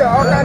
Okay, kinds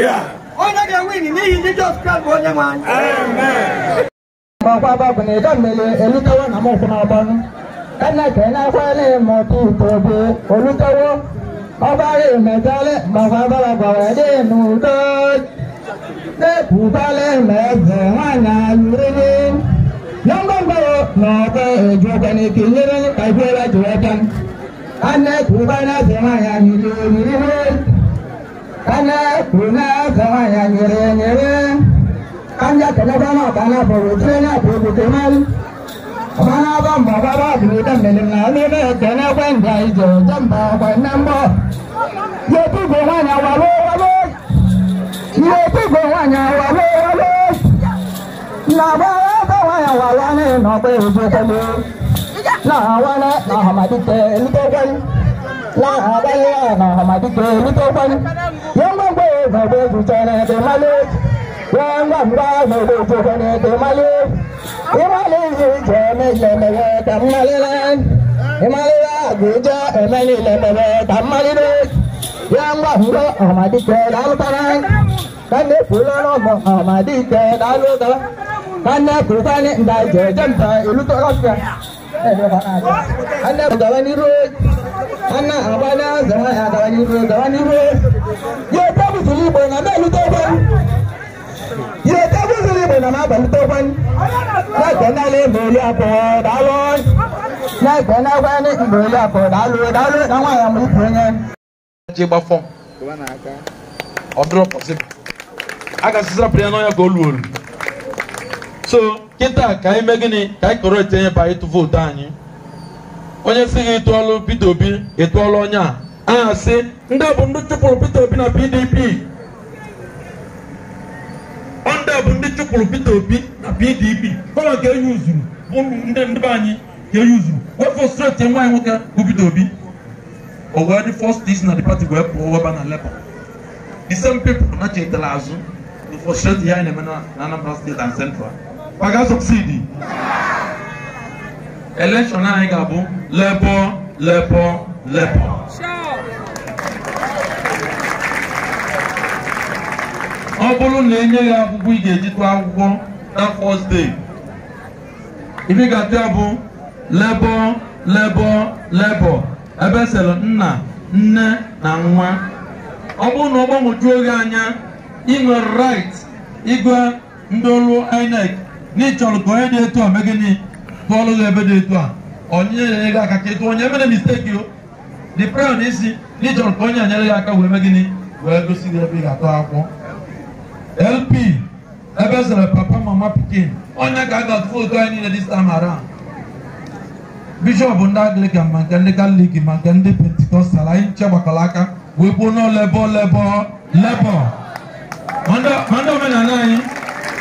Yeah. We're not going to win. You need Jesus Christ for them, man. Amen. Mọ̀pá bàbá ni ìdámẹ́lẹ̀ olùtọ́wọ́ náà mọ̀ fún ọba nù. Ẹnẹ̀kẹ́ náà fẹ́lẹ̀ mọ̀ kí ìtòbí olùtọ́wọ́. Ọba rẹ̀ mẹ̀tẹ́lẹ̀ mọ̀pá bàbá bàbá dé nù tó. Dẹ́kù balẹ̀ mẹ́sẹ̀ wọn náà lórí. Yọ̀ngbọ̀ngbọ̀wọ̀ mọ̀ọ́kọ́ èjò kẹ́ni kì í yẹ́rẹ́ ní kàìpẹ́ láti wọ́tán. Ẹnẹ̀kù balẹ̀ mẹ́sẹ̀ wọn náà lórí kana kuna kama ya nyere nyere kanja kana kama kana boro tena boro temal mana ba ma ba ba ni da ne na ne ne kana kwan da ijo jamba kwan nan ye tu go wa na wa ye tu go wa na wa lo wa lo na ba ba wa ya wa wa ne no pe ojo ko na wa na na ha te ni lahadaya na hamadi kiri tó pọn yẹn gbogbo ìgbàgbé jùjọ ní ẹdè malé yẹn gbàgbá ìgbàgbé jùjọ ní ẹdè malé ìmàlẹ yìí jẹ ní lẹmẹrẹ tàmílẹ lẹ ìmàlẹ àgbèjọ ẹmẹlẹ lẹmẹrẹ tàmílẹ lẹ yẹn gbàgbá hamadi kiri lálùtàrà kánde fúlọ́nà mọ hamadi kiri anda gawani road ana abana zama gawani road gawani road yau ta musulmi igbo na na luta gwan yau ta musulmi igbo na ma ba luta gwan láìpẹ́ náà lè mọ̀ orí àpò dálọ́ láìpẹ́ náà wá ní ìmọ̀ orí eji dálọ́ dálọ́ láwọn àyàmú a ka so kịta ka anyị mee gịnị ka anyị kọrọ etinye ba ịtụ vootu anyị onye si gị tụọlụ Peter Obi ịtụọlụ onye a aha si. ndị bụ ndị chụpụrụ Peter Obi na PDP ndị bụ ndị chụpụrụ Peter Obi na PDP kọrọ nke enyi uzuru ndị ndị anyị ka enyi uzuru wepụ streti nwa anyị nwoke bụ Peter Obi o wee dị first dis na the party wee pụọ weba na Labour the same people na chetara azụ the frustrate ya anyị na-eme na Anambra State and Central ma sọksidi suksidi elekshọn anyị ga-abụ lebọ lebọ lebọ ọ bụrụ na enye ya akwụkwọ ị ga-eji akwụkwọ na first day ife ga-atụ ya bụ lebọ lebọ lebọ ebe e sịrị nna nne na nwa ọ bụrụ na ọ gbanwejuo gị anya ịnwe rait right ịgwa ndị ọrụ INEC n'ịchọrọ ka onye dị etu a mee gịnị tụọlụ gị ebe dị etu a onye nyere gị aka ka ịtụ onye emere misteki o dị prayo na isi na ka onye nyere gị aka wee mee gịnị wee gosi gị ebe ị ga-atụ akwụkwọ lp ebe e zere papa mama pikin onye ka a ga-atụ vootu anyị niile dis time around bishọp ndị Anglican ma nke ndị Katọlik ma nke ndị pentikọstal anyị nche gbakọrọ aka wee gbuo n'olebo lebo lebo ma ndị omenala anyị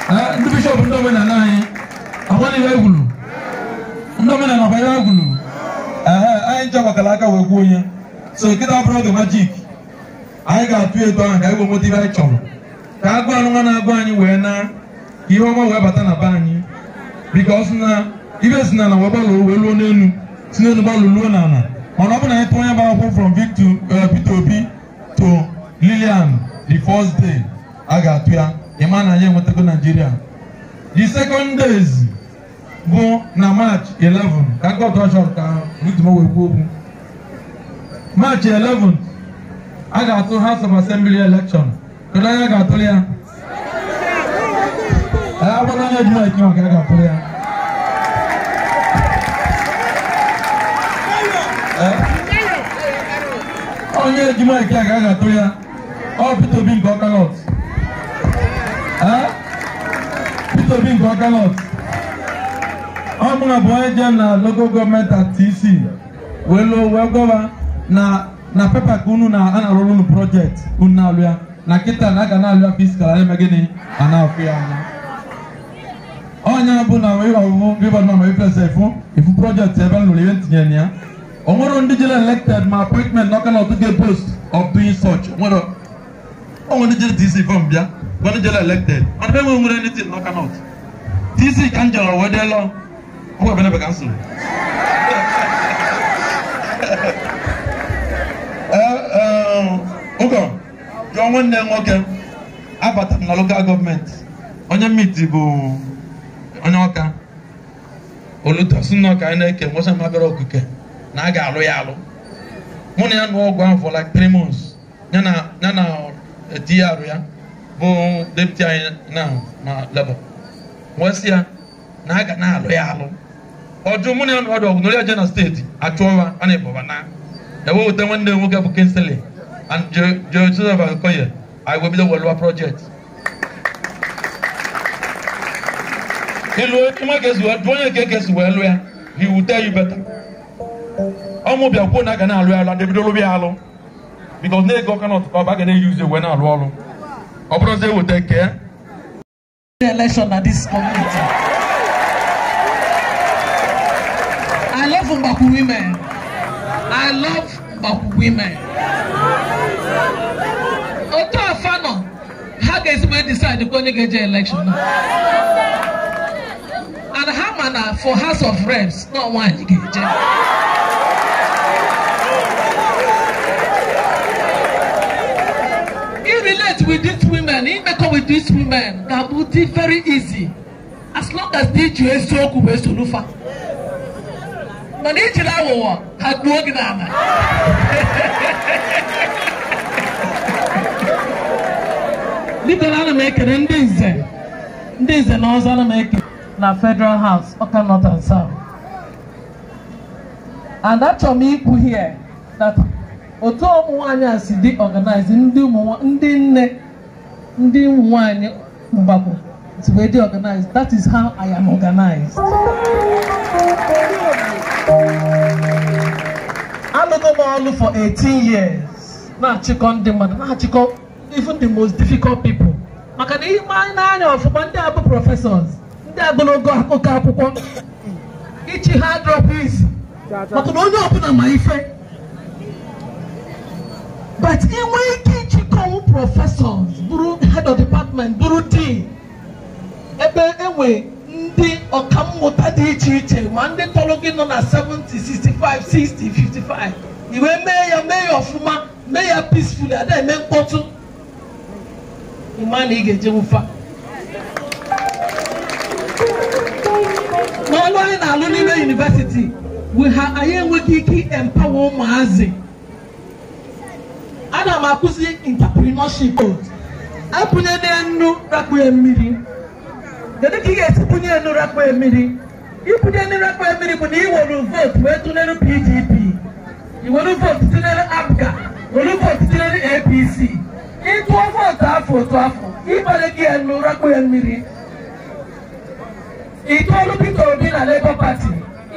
Ah, ndị bishọp ndị omenala anyị agbaliwe egwuru ndị omenala gbanyere egwuru anyị ncha gbakara aka wee kwuo onye so nkịta bụrụ oge majik anyị ga-atụ edo ahụ ka anyị wee nweta ibe anyị chọrọ ka agụ anụ nwa na-agụ anyị wee na ka ihe ọma wee bata na be anyị bikos na ibe si n'ala wee gbalụo wee luo n'elu si n'elu gbalụ luo n'ala mana ọ bụ na anyị tụọ onye bụ akwụkwọ from Victor uh, Peter Obi to Lilian the first day a ga-atụ ya ịma na anyị enwetago naijiria the second days bụ na march 11 ka gọdọshọn ka rutumowe kwuo okwu march 11 a ga-atụ house of assembly election kedu anya ga-atụrụ ya agbara anya ji maịkị maka a ga-atụrụ ya onye ji maịkị a ga-atụrụ ya ọ Peter Obi nke ọkalọt Peter Obi nke Ọkalọt ọ mụrụ bụ onye je na local Government gọọmenti TC wee lụọ wee gọba na na pepa ka unu na a na-arụrụ unu projekti unu na-alụ ya na kịta na aga na-alụ ya fiskal eme gịnị a na-afụ ya anya Ọnya bụ na wee ọwụwụ river nọ ma ifesa ifu ifu projekti ebe m lụrụ ihe ntinye ya o nwere ndị jere elected ma appointment na Ọkalọt ga post of doing such o nwere ndị jere DC fọm bịa Bonijela elected and e nwe nwere anything knock out TC Ikanjala wee deelọ ọgwụ ebenebe ka m soro ụkọ jụọ nwoke abata m na gọọmenti onye mmiti bụ onye ọka oluto si ka anyị na-eke nwosa okike na a ga-alụ ya alụ mụ na ya nụọ for like three months ya na ya arụ eh, ya bụ depụti anyị na leba wesị ya na a ga na-alụ ya alụ ọjụ mụ na ya nọdụ ọgụ n'oria jena steeti achụọwa a na-ebọba na ewe weta nwanne nwoke bụ kinsili and joseph akoye anyị wee bido welụwa projekti ịlụ nwa ga-esi wee onye nke ga-esi wee lụ ya he will tell you better ọmụ bịa kwuo na aga na-alụ ya alụ adịbido ya alụ because na-ego ọka na ọtụkọ ọba ga na-eyuzi wee na-alụ ọrụ ọ bụrụzi eweta nke election na this community I love Mbakwu women I love Mbakwu women otu afano how ha ga-esi decide to go ga election and ha ma for house of reps not one with these women imekọ with these women ga-abụ very easy as long as di ji eziokwu wee solufa mana ijiri aghụghọ ha gbuo gị n'ala bidoro ana m ekele ndị nze ndị nze na ọzọ ana ekele na federal house ọka north and and m here otu ụmụ nwanyị a si dị ọganaịz ndị nne ndị ụmụ nwanyị mgbakọ si wee dị ọganaịz that is how I am organized. alụgo m ọlụ for 18 years na-achịkọ ndị mmadụ na-achịkọ even the most difficult people maka na ihe anyị na ọfụma ndị abụ prọfesọs, ndị agologo akụkọ akwụkwọ ichi ha drop maka na onye ọbụla ma ife but inwe ike ịchịkọwụ prọfesọs bụrụ head of department bụrụ dean ebe enwe ndị ọkammụta dị iche iche ma ndị tọrọ gị nọ na 70 65 60 55 iwe mee ya mee ya ọfụma mee ya peacefully ada eme mkpọtụ ịma na ị ga-eje nwụfa n'ọnụ anyị na-alụ n'ime yunivesiti anyị enweghị ike empower ụmụazị ana m akụzi intaprenership apụnye n'enu rakpue mmiri kedu ka ị ga-esi pụnye enu rakpue mmiri ịpụnye enu rakpue mmiri bụ na ị were vootu wee tụnyere PDP ị were vootu tụnyere APGA were vootu tụnyere APC ịtụọ vootu afọ otu afọ ịbanye gị enu rakpue mmiri ị tụọlụ Obi na Labour Party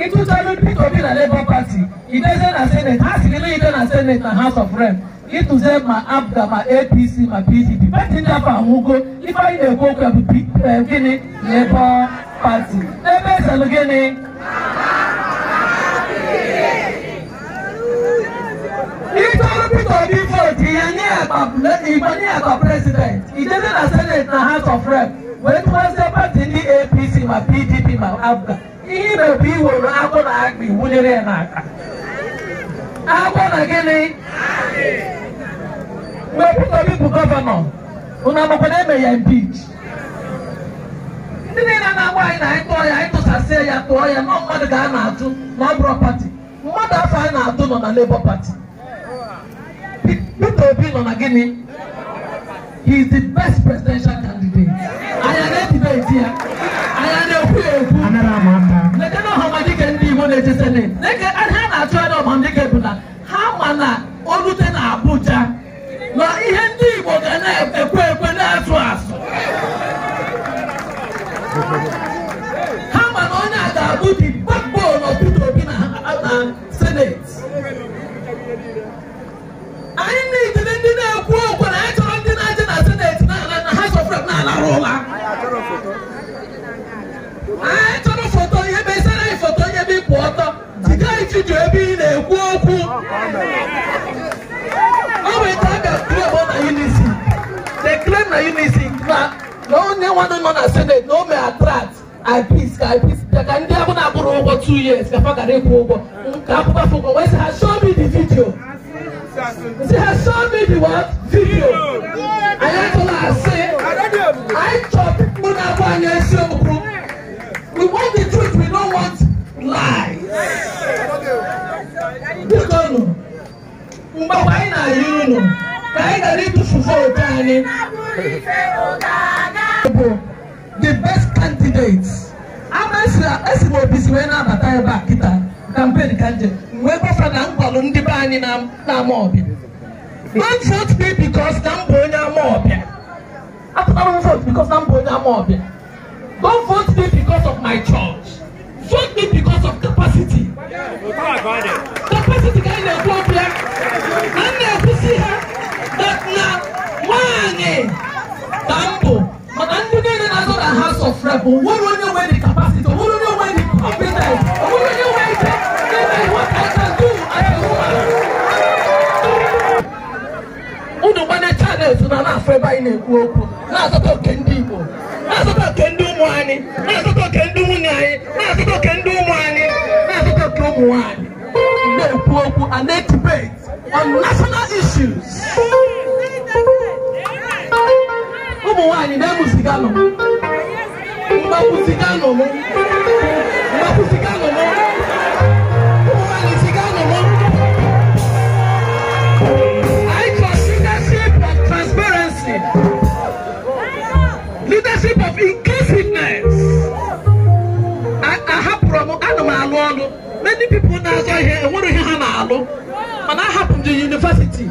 ịtụtalụ Peter Obi na Labour Party idezie na seneti ha siri na ide na seneti na House of Rem. ịtụze ma abda ma apc ma pdp pati afọ ahụgo ife na-ekwu okwu bụ gịnị lebọ pati ebe ezelụ gịnị peter nye ya na e e senate na house of apc ma pdp ma abda ihe e ime bụ iworo na iwunyere ya n'aka na gịnị mgbe Peter bụ gọvanọ unu amakwana eme ya impeach ndị niile na-agba anyị na anyị tụọ ya anyị tụsasịa ya tụọ ya nọ mmadụ ka a na-atụ na ọ pati mmadụ afọ anyị na-atụ nọ na Labour Party Peter Obi nọ na gịnị he is the best presidential candidate anyị na-edibeti ya anyị na-ekwu ya ekwu lekena ọhamadike ndị Igbo na-eche seneti leke ha na-achụ ya na ọhamadike bụ na ha ma na o rute na Abuja ma ihe ndị Igbo ga na-ekwe ekwe na-atụ asụ ha ma na onye a ga-abụ dị backbone of Obi na senet anyị niile na yi na isi na na onye nwanne nọ na senate na o mee attract IPs ka IPs ka ndị ahụ na-akwụrụ ụgwọ two years ka fa gara ịkwụ ụgwọ ka akwụkwọ afọ ụgwọ wee sị ha show me the video sị ha show me the what video anyị atụla asị anyị chọrọ pipo na-abụ anyị eziokwu we want the truth we don't want lies biko nụ mgbe anyị na-ayị unu ka ị ghara ịtụfufe otu the best candidate esi m obi si wee na-abata ebe a kịta kampen ka nje wee gbafa na nkwalụ ndị be anyị na-ama ọbịa don't vote me because na m bụ onye ama ọbịa apụtara m vote because na m onye ama ọbịa don't vote me because of my church vote me because of capacity capacity ka anyị na-ekwu ọbịa na m na-ekwusi ha na nwanyị ka mbụ maka ndị niile na-azọ na House of Rep nwere onye nwe dị kapasiti nwere onye nwe dị competent nwere onye nwe ike ime what I can do as a woman unu gbanye chanels na na-afọ ebe anyị na-ekwu okwu na azụta oke ndị Igbo na azụta oke ndị ụmụ anyị na azụta oke ndị nwunye anyị na azụta oke ndị ụmụ anyị na azụta oke ụmụ nwanyị. na-ekwu okwu a na-etibet on national issues. ụmụ nwanyị na-emu siga nọ mgbapụ siga nọ mụ mgbapụ siga nọ mụ ụmụ nwanyị siga nọ mụ. Leadership of transparency, leadership of inclusiveness. Ahapụrụ m, ana m alụ ọlụ. Many people na-azọ ihe, enwere ihe ha when I happened to university,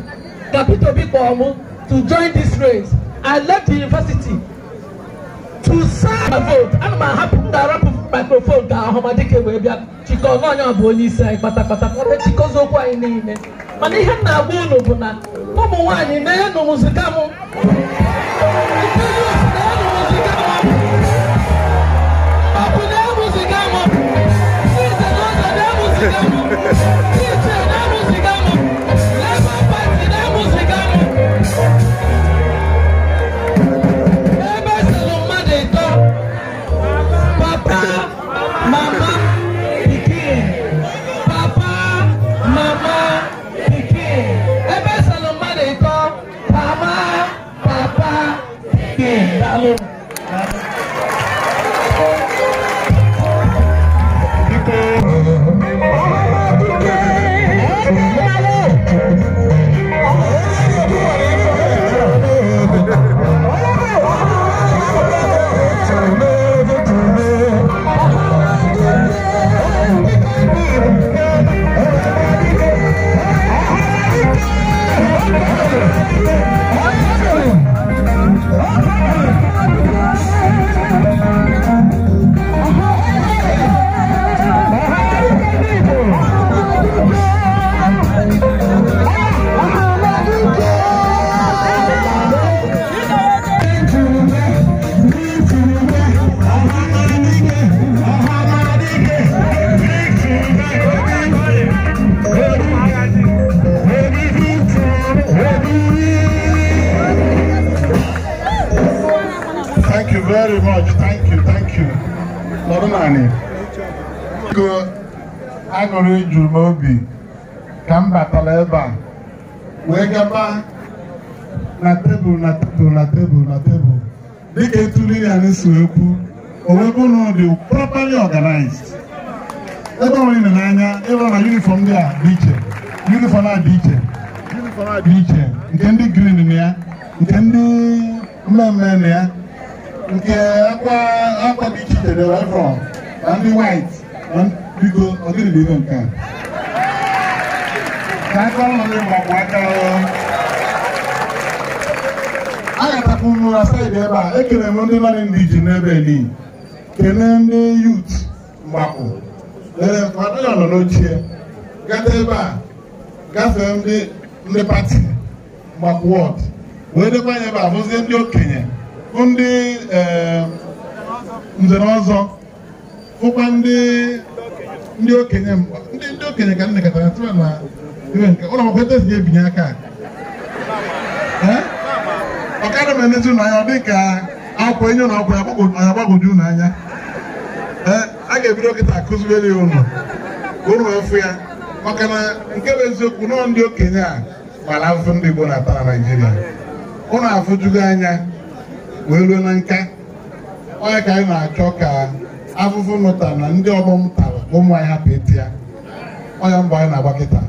Gapito Bikomo to join this race, I left the university to serve my vote. And my happened to rap microphone down, Homadike Webia, Chico, no, no, Bolisa, Patapata, Chico's Oka in the Mana ihe m na-agba unu bụ na ụmụ nwaanyị na-enụ mụzika mụ nwaanyị ego aṅụrị juru m obi ka m batara ebe a wee gaba na tebụl na tebụl na tebụl na ya ekwu owebe ụlọ dị properly organized ebe ọ nọ n'anya na yunifọm ndị a dị iche yunifọm a dị iche dị iche nke ndị green ya nke ndị mmemme ya nke akwa akwa dị iche iche dị na ndị white na biko ọ dịrị n'ime nke a ka aka ụlọ ndị mgbe ọgwụ aka agatakwu m na saịdị ebe a ekele m ndị nọrị ndị ji n'ebe eli kelee ndị yut mgbapụ lere nke ọdịnala nọ n'ochie gata ebe a gafee ndị ndị pati mgbapụ wọd wee dịkwa dekwa ebe a bụzie ndị okenye bụ ndị nze ọzọ hụkwa ndị ndị okenye mgba ndị ndị okenye ka nnekọtara tụrụ na iwe nke ụlọ akwụkwọ ete si ebinye aka ọkara m enezi ụlọ anya dị ka akwụkwọ enye ụlọ akwụkwọ ya agbagoju ụnụ anya a ga-ebido kịta akụzibere ya ụlọ ụnụ efu ya maka na nke bụ eziokwu nọọ ndị okenye a mara afụfụ ndị Igbo na-ata na Naịjirịa ụlọ afụjugo anya wee ruo na nka onye ka anyị na-achọ ka afụfụ nụtara na ndị ọgbọ m tara ụmụ anyị hapụ eti ya ọnya mgbe anyị na-agba kịta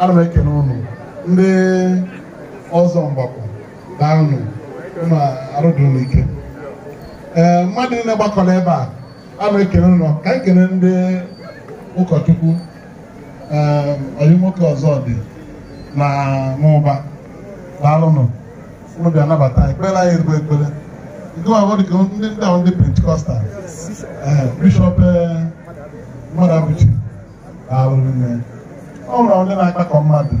ana m ekele ụnụ ndị ọzọ mgbakọ, daanụ ụnụ arụdụnụ ike ee mmadụ niile gbakọrọ ebe a ana m ekele ụnụ ka anyị kele ndị ụkọchukwu ọyị nwoke ọzọ dị na n'ụba daalụnụ ụnụ bịa nabata ekpere anyị erigbo ekpere nke ma ọ dị ka ndị ndị ahụ ndị pentikọstal Eh, bishọp eh, mmadụ arụrụ nne ọ nwere ndị na-akpakọ mmadụ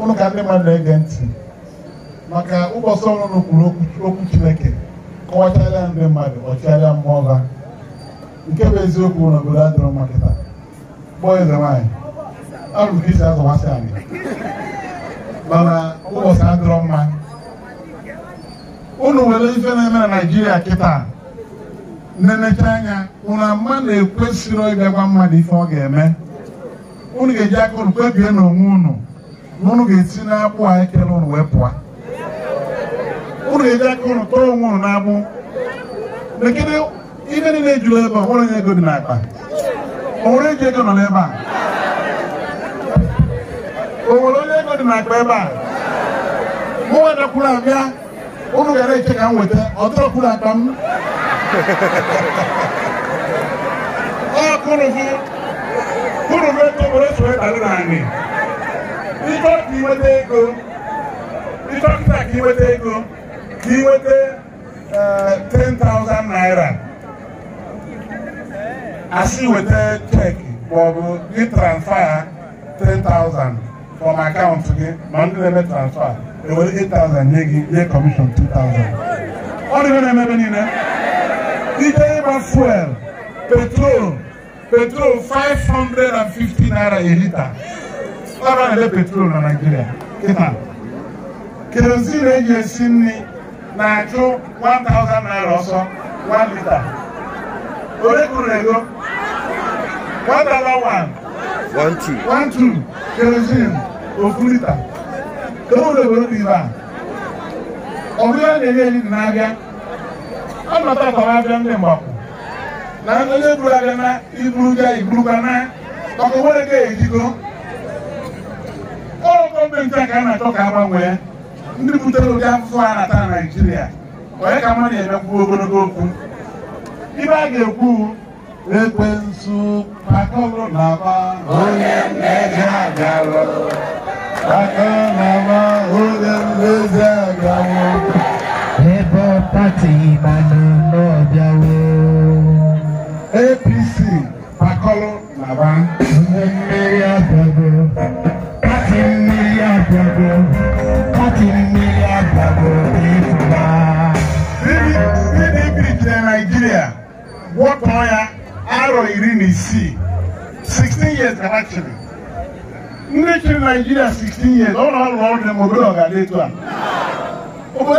ụnụ ka ndị mmadụ na-ege ntị maka ụbọchị ọrụ kwuru okwu Chineke kọwacharịa ndị mmadụ ọchịagha mmụọ ha nke bụ eziokwu na n'obodo adịrọ mma kịta kpọọ eze nwaanyị arụrụ ka isi azọwasị anyị mana ụbọchị adịrọ mma ụnụ nwere ife na-eme na Naịjirịa kịta nenecha anya ụna ama na-ekwesịrị ịbịagwa mmadụ ife ọ ga-eme unu ga-eji aka unu kpebie n'onwe unu na unu ga-esi n'agbụ a ekele unu wee pụa. unu ga-eji aka unu tọọ onwe unu n'agbụ lekere ibe niile ejuru ebe ọ nwere ego dị n'akpa o nwere eji ego nọ n'ebe a o nwere onye ego dị n'akpa ebe a mụ nwa abịa unu gara eche ka m weta ọ tọrọkwuru akpa m ọ naanị ego ka ego 10,000 naira asị weta transfer 10,000 from account gị ma ndị na-eme transfer nwere 8,000 nye gị nye commission 2,000 ọ na-emebe niile Nitaiba fuel, petrol, petrol 550 naira a liter. Ọrụ ele petrol na Naịjirịa kịta. Kerozin eji esi nri na-achụ 1000 naira ọsọ one litre. Ole kwuru ego? One dollar one. One two. One two. Kerozin ofu litre. Ka o were were n'ibe a. Ọ bụrụ na-enye enyi na-abịa ọnọta ka abịa ndị mgbapụ na onye eburu abịa na iburuga iburuga na maka nwere ka ejigo ọrụ gọọmenti a ka a na-achọ ka agbanwee ndị butere ụdị afụfụ a na-ata na naijiria onye ka mma na-emekwu ogologo okwu ibe a ga-ekwu ekwensu pakọrọ na aba onye mmejọ agalụ pakọrọ na aba onye mmejọ agalụ tatimana n'ọbịawo APC pakọlụ naba ihe mmiri abịago pati mmiri abịago pati mmiri abịago ịpụta ndị birikere Naịjirịa gwọtọọ ya arọ iri na isii 16 years actually ndị chịrị Nigeria 16 years ọ na-alụ ọrụ na obodo etu a obodo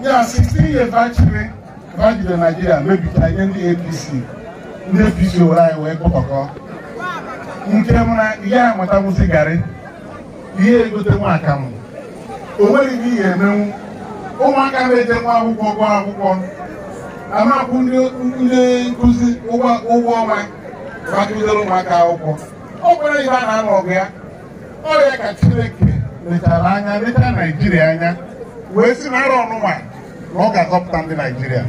ya 16 years bachiri na naijiria mebichaa ihe ndị apc ndị apc owere oh, anyị wee kpọkọkọ nke m na ihe anyị mụtawụzi garị ihe egote nwa akamụ o nweghị ihe emenwu ụmụaka na-eje nwa akwụkwọ akwụkwọ ndị ụgwọ ụmụaka akwụkwọ ọ kwere ibe a na ọgụ ya ka chineke anya anya wee na ọ ga-azọpụta ndị Naijiria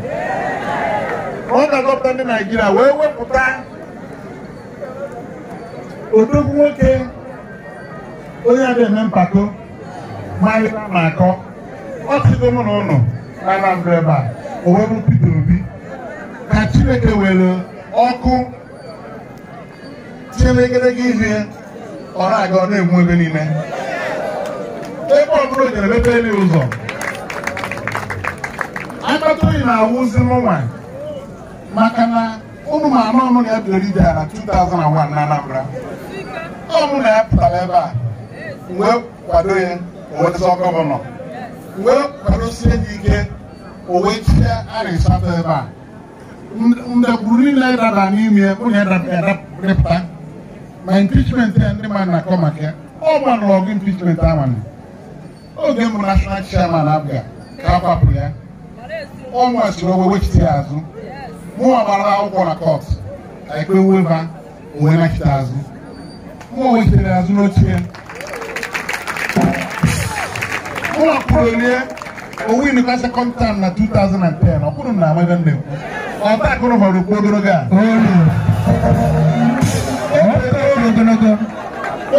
ọ ga-azọpụta ndị Naijiria wee wepụta odogwu nwoke onye adịghị eme mpako malịra na akọ ọ sịgo mụ na ụnụ na Anambra ebe a o wee bụ Peter Obi ka Chineke were ọkụ tinyere egedege ihe ọ na-aga ọ na-enwu ebe niile ebe ọ bụla o jere mepere akpata oyi na-awụzi n'ụwa maka na ụmụ ma anụnụ na-ebiri bịara na 2001 na Anambra ọmụ na-apụtara ebe a wee kwado ya owetụta gọvanọ wee sie gị ike owetie arịsatọ ebe a mgbegburu niile dara n'ime onye depụta ma impichment ya ndị mmadụ na-akọ maka ya ọ gbanụrụ ọgụ impichment amanụ oge mbụ nashọnal chairman abịa ka a kwapụrụ ya ọnwa chiri owe wechite ya azụ mụnwa gbara akwụkwọ na kọt ka ikpe weba onwe nachite azụ mụnwa wechitere ya azụ n'oche mụnwa kwuru rie owu inuka sekọnd tam na 2010 ọkwụrụ na amaghị nne m ọta akụrụ họrọ okwu ogologo a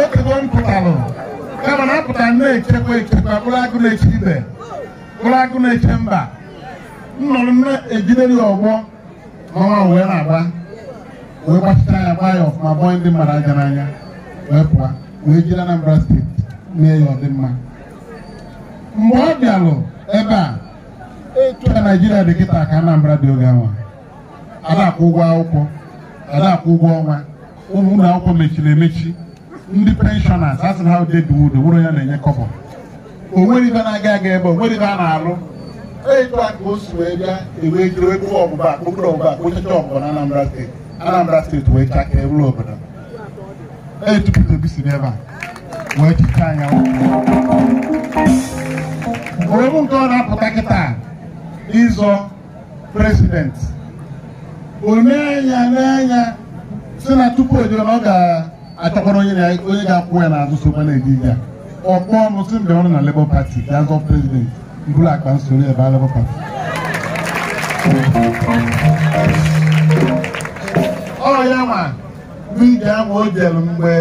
okego m pụtalụ kama na apụta na-echekwa echekwa mkpụrụ agụ na-eche ibe mkpụrụ agụ na-eche mba nnọrọ na-ejidere ya ọgbọ ma wee na-agba wee gbachita ya gbaa ya ọfụma bọọ ndị mmadụ aja n'anya wee pụọ wee jiri Anambra steeti mee ya ọdịmma mgbe ọ bịalụ ebe a etu a Naịjirịa dị kịta ka Anambra dị oge anwa adakwụ ụgwọ akwụkwọ adakwụ ụgwọ ọnwa ụmụ akwụkwọ mechiri emechi ndị penshọnas asị na ha deduwudo wụrụ ya na-enye kọbọ o nwere ibe na-aga aga ebe o nwere ibe a na-alụ etu a ka o si wee bịa ewee jiri kpụọ ọgbụgba akpụkpọ ọgbụgba akpụchacha ọgbụgba na Anambra steeti Anambra steeti wee chakere ewuru obodo etu Peter Obi si n'ebe a wee chicha anya ogbụ nke ọ na-apụta kịta ịzọ prezidenti onye anya n'anya si na tupu o e jere na ọ ga-achọkwara onye ga-akwụ ya n'azụ sokwa na-eji ya ọkpọ ọnụ si mgbe ọrụ na Labour Party ga-azọ prezident. mkpụrụ akpa nsoro ebe alabụ pati ọ ya ma vidio ahụ o jelu mgbe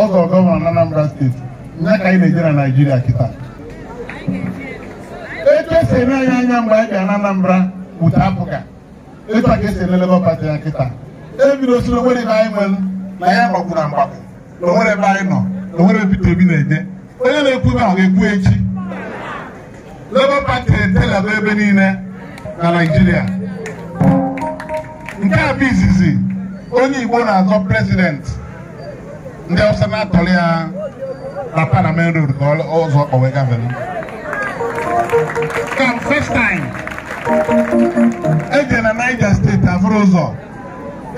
ọgọ gọvanọ Anambra steeti ya ka anyị na-eje na Nigeria kita. etu anyị anya na Anambra wute apụga etu a ka esi ele Party ya kita. E onwere anyị nwere na ya na ebe anyị nọ na onye na-ekwu Labour Party na-etelaba ebe niile na Naịjirịa nke a bụ izizi onye Igbo na-azọ prezidenti ndị ọsọ na-atọrọ ya na Parliament Road ka ọzọ kpọwe gavelu eje na Niger steeti afụrụ ụzọ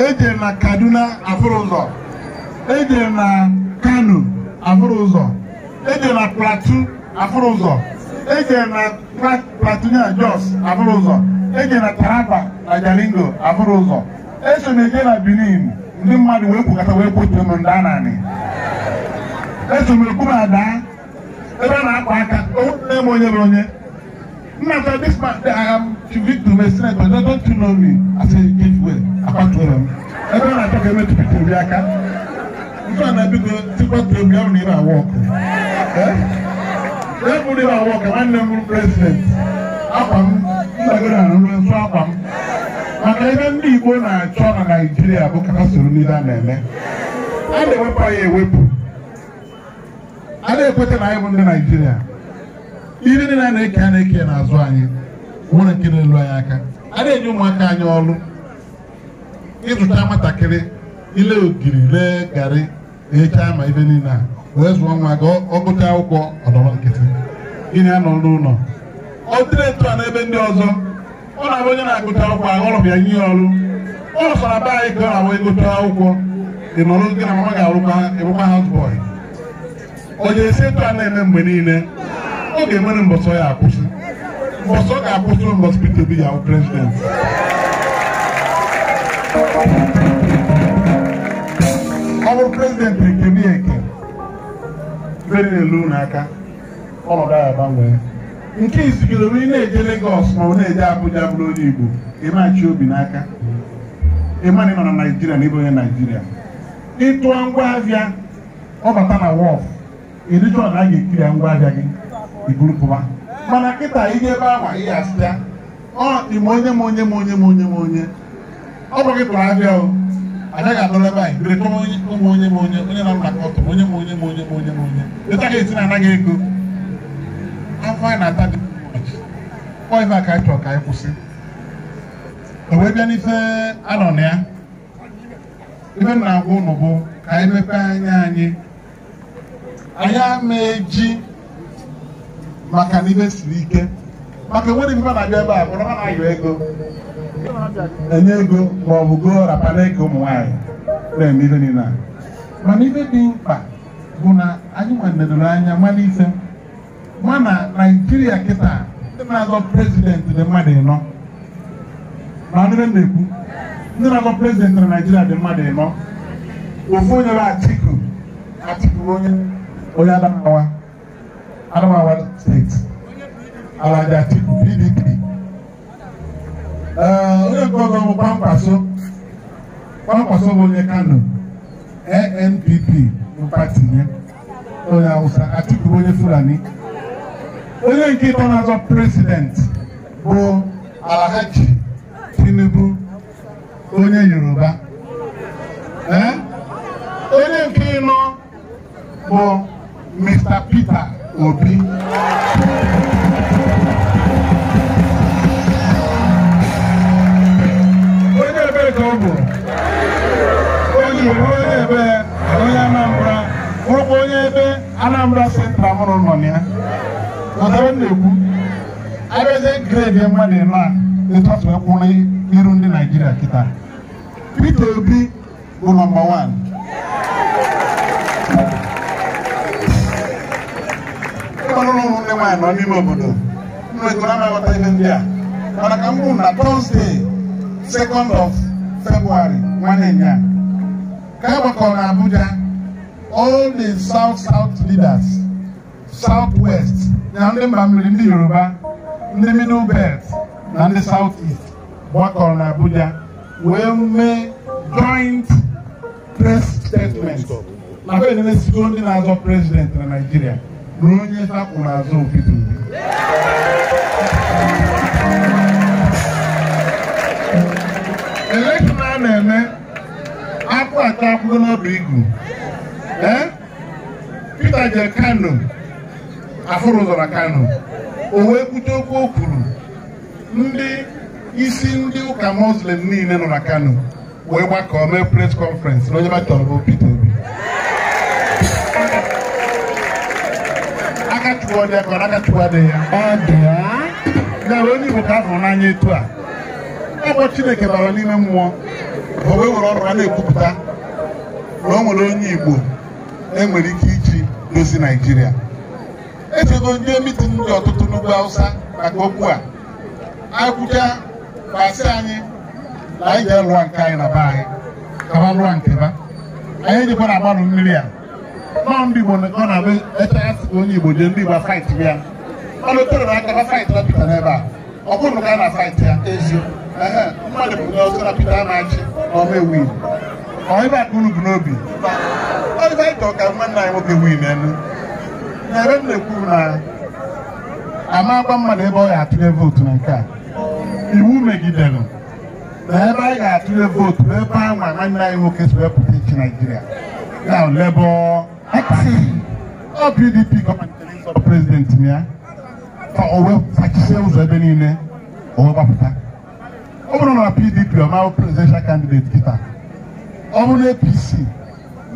eje na Kaduna afụrụ ụzọ eje na Kano afụrụ ụzọ eje na Plateau afụrụ ụzọ ejere na Platinia Jos abụrụ ụzọ ejere na Taraba e na Jalingo abụrụ ụzọ eso m eje na Benin ndị mmadụ wee kwukọta wee kwutere m nda naanị eso m ekwu ma daa ebe a na-akwa aka onye m onye bụ onye nna ta this man I am victor my senator they don't you know me I say give way akwatuoro m ebe a na-achọ ka emetụpụta obi aka nke a na-ebigo tikwa turobi ya bụ na ị na-awa ọkụ eh? ebuli m abụọ ka nwanne m bụrụ prezidenti akwa m ndagoro arụrụ nso akwa m maka ebe ndị Igbo na-achọ na Naijiria bụ ka ha soro n'ihe a na-eme a na-ewepụ anyị ewepụ a na-ekweta na anyị bụ ndị Naijiria, ihe niile a na-eke a na-eke n'azụ anyị nwere nke na-elu anyị aka a na-enye ụmụaka anyị ọrụ ịzụta nwatakịrị ile ogiri lee garị echa ma ibe niile a wee zụọ nwa ga ọ akwụkwọ ọdọrọ nkịtị gịnị anọ n'ụlọ ọ dịrị ntụ a n'ebe ndị ọzọ ọ na-abụ onye na-agụta akwụkwọ aghọrọ ya nye ọrụ ọ nọsara be anyị ka ọ na-abụ ịgụta akwụkwọ ị nọrọ gị na mama ga-arụkwa ịbụkwa houseboy ọ ga-esi ntụ a na-eme mgbe niile ọ ga-emere mbọsọ ya akwụsị mbọsọ ga-akwụsị mbọsọ Peter Obi ya bụ prezidenti ọ bụrụ prezidenti bere na-elu n'aka aka ọnọdụ ahụ agbanwee nke izigoro onye na-eje Lagos ma ọ na-eje Abuja bụrụ onye Igbo ịmachi obi n'aka ịma na ị nọ na Naijiria na ịbụ onye Naijiria ịtụọ ngwaahịa ọ bata na wọf ịdịcha ọna a ga-ekiri ya ngwa gị iburu pụba mana kịta ihe ebe awa ihe asịa ọ dị m onye m onye m onye m onye m onye ọ bụghị gị tụrụ ahịa o anaghị adọla ebe anyị bere onye ụmụ onye ma onye onye na mgbakọ ọtọ onye ma onye ma onye ma onye ma onye letaghị esi na anaghị ego afọ anyị na-ata dị kpọ a ka anyị chọrọ ka anyị kwụsị o wee bịa n'ife anọ na ya ife m na-agwa ụnụ bụ ka anyị mepee anya anyị anyị ama eji maka na ibe siri ike maka enweghị ife na-abịa ebe a bụrụ ha na-ayọ ego enye ego ma ọ bụ goo rapara ego ụmụ nwaanyị na-eme ife niile mana ife dị mkpa bụ na anyị nwedoro anya mara ife ma na naijiria kịta ndị na-azọ prezidentị dị mmadụ ịnọ na ndị na-ekwu ndị na-azọ prezidentị na naijiria dị mmadụ ịnọ ofu onye bụ atiku atiku onye onye adamawa adamawa steeti alaja atiku pdp Eh, onye nke ọzọ bụ Kwankwaso Kwankwaso bụ onye Kano NNPP bụ pati ya onye Hausa Atiku bụ onye Fulani onye nke ịtọ na-azọ prezident bụ Alhaji Tinubu onye Yoruba eh? onye nke ịnọ bụ Mr. Peter Obi ebere ka ọ bụ o jiri onye ebe onye Anambra bụrụkwa onye ebe Anambra sentra mụrụ nọ na ya ọtara m na-ekwu abịazie gredi mmadụ ịnọ a ịtọtụ e ekwu n'iru ndị Naijiria kịta Peter Obi bụ nọmba wan ụmụnne ụmụnne nwaanyị nọ n'ime obodo nnwego na amaghọta ihe ndị a mana ka m bụ na Tọzdee 2nd of February nwanne ya ka e gbakọrọ na Abuja all the south south leaders south west na ndị mba mmiri ndị Yoruba ndị middle belt na ndị south east gbakọrọ na Abuja wee mee joint press statement maka enene siko ndị na-azọ prezidenti na Naịjirịa ruo onye takwụrụ azụ Peter na-eme akwụ atọ akwụgo n'ọba igu ee Peter jere Kano afụrụ zọrọ Kano o wee kwute okwu o kwuru ndị isi ndị ụka muslim niile nọ na Kano wee gbakọọ mee press conference na onye batọrọ Peter Obi akachukwu dị akọrọ akachukwu adịghị ya ya onye Igbo ka afụrụ n'anya etu a ọ bụ Chineke bara n'ime mmụọ owe nwere ọrụ a na-ekwupụta na o nwere onye Igbo enwere ike iji dozi Naịjirịa echego ndị mitin dị ọtụtụ n'ugwu awụsa maka okwu a Akwụcha agwụcha kpasị anyị na anyị ga-alụwa nke anyị na be anyị kaba lụọ nke ba anyị ejikwa na agbanụ mmiri a nọọ ndị Igbo ọ na be echegasị onye Igbo jee ndị Igbo fight ya ọ na-etere na akaba fight na Peter n'ebe a ọ bụrụ ka a na-afaịtị ya eziokwu mmadụ bụ onye ọzọ na-apịta a na-achị n'ọma ewu iwu ọhịba akpụrụ bụ n'obi ọdịbaịta ọka nwanne anyị nwoke wii na n'elu na m na ekwu na ama agwa mmadụ ebe ọ ga-atụnye vootu na nke a iwu megidere na ebe anyị ga-atụnye vootu ebe anwa nwanne anyị nwoke si wepụta ichi naijiria na Labour ọ PDP gọọmenti prezidenti ya o wee ụzọ ebe niile o wee gbapụta ọ bụrụ PDP ọmahụ presidential candidate kịta ọ bụ na APC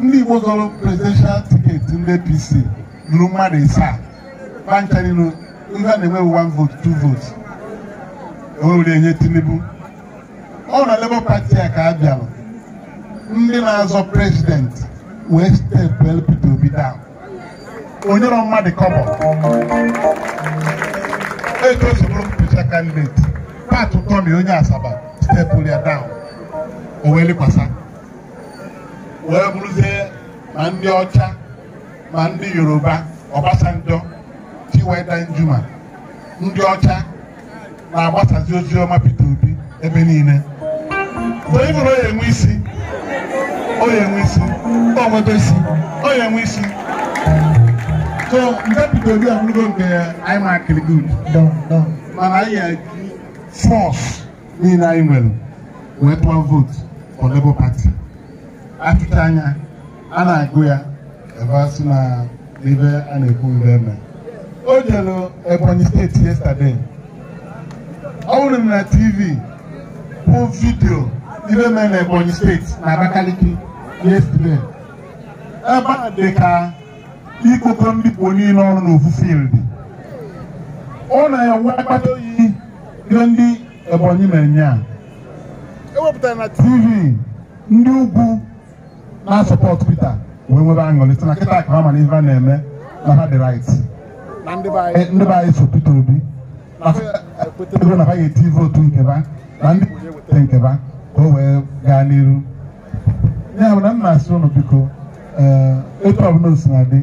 ndị Igbo presidential tiketi ndị APC lụrụ mmadụ ịsaa gba ndị na one vote two votes O na Labour Party a ka a ndị na-azọ wee stepụ Obi Onye onyere mmadụ kọbọ N'oge ego soro mpụcha kandideti pat tọmi onye asaba stepụl ya down o wee lekwasa wee bụrụzie ma ndị ọcha ma ndị yoruba ọbasanjọ chiweda njuma ndị ọcha ma gbasasị ozi ọma peter obi ebe niile mgbe ị bụrụ onye enwe isi onye enwe isi onye enwe isi so ndepụta obi ọgwụgo nke anyị ma akịrị gud mana anyị eji fọs niile anyị nwere wee vootu for Labour Party atụcha anya a na-agụ ya ebe sị na ebe a na-ekwu ebe eme o jere Ebonyi steeti yesterday ọ hụrụ na TV bụ vidio ibe e mere na Ebonyi steeti na Abakaliki yesterday ebe a ka ikpokọ mbikpo niile ọrụ n'ofufiildi ọ na-enwe mkpata oyi ndị Ebonyi na-enye a e tv ndị ugwu na-asọpọt Peter wee nwebe aṅụrị sị na kịta ka ha mana a na-eme na ha dị right eh, ndị be anyị so Peter Obi ego na ha ga-eti nke ba na ndị nke ba ka o wee gaa n'iru ya bụ na m na-asị ụnụ biko ee eh, etu ọbụla o na dị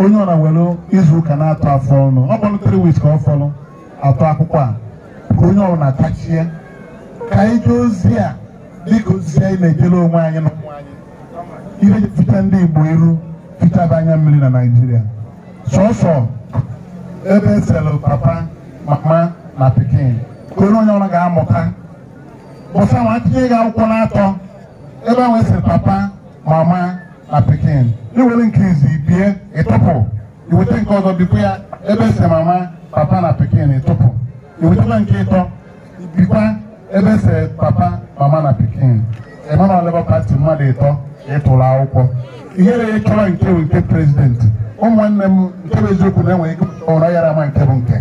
onye ọ na welu izuụka na-atọ afọ ọnụ ọ bụrụ 3 weeks ka ọ fọrọ atọ akwụkwọ a ka onye ọrụ na-atachie ka ije ozi a dịka ozi anyị na-ejere onwe anyị na ụmụ anyị ihe fita ndị Igbo iru fitaba anya mmiri na Naịjirịa sọsọ ebe eselụ papa mama na pikin ka onye onye ọrụ ga-amụta bụsa ma tinye gị akwụkwọ na atọ ebe ahụ esiri papa mama na pikin iwere nke izi bie ịtụpụ iweta nke ọzọ bikwa ya ebe se mama papa na pikin ịtụpụ iwetakwa nke ịtọ bikwa ebe se papa mama na pikin emana Labour Party mmadụ ịtọ ịtụrụ e akwụkwọ ihe ya e chọrọ nke nke president ụmụnne m nke bụ eziokwu na-enweghị enwe ụra yara ama nke bụ nke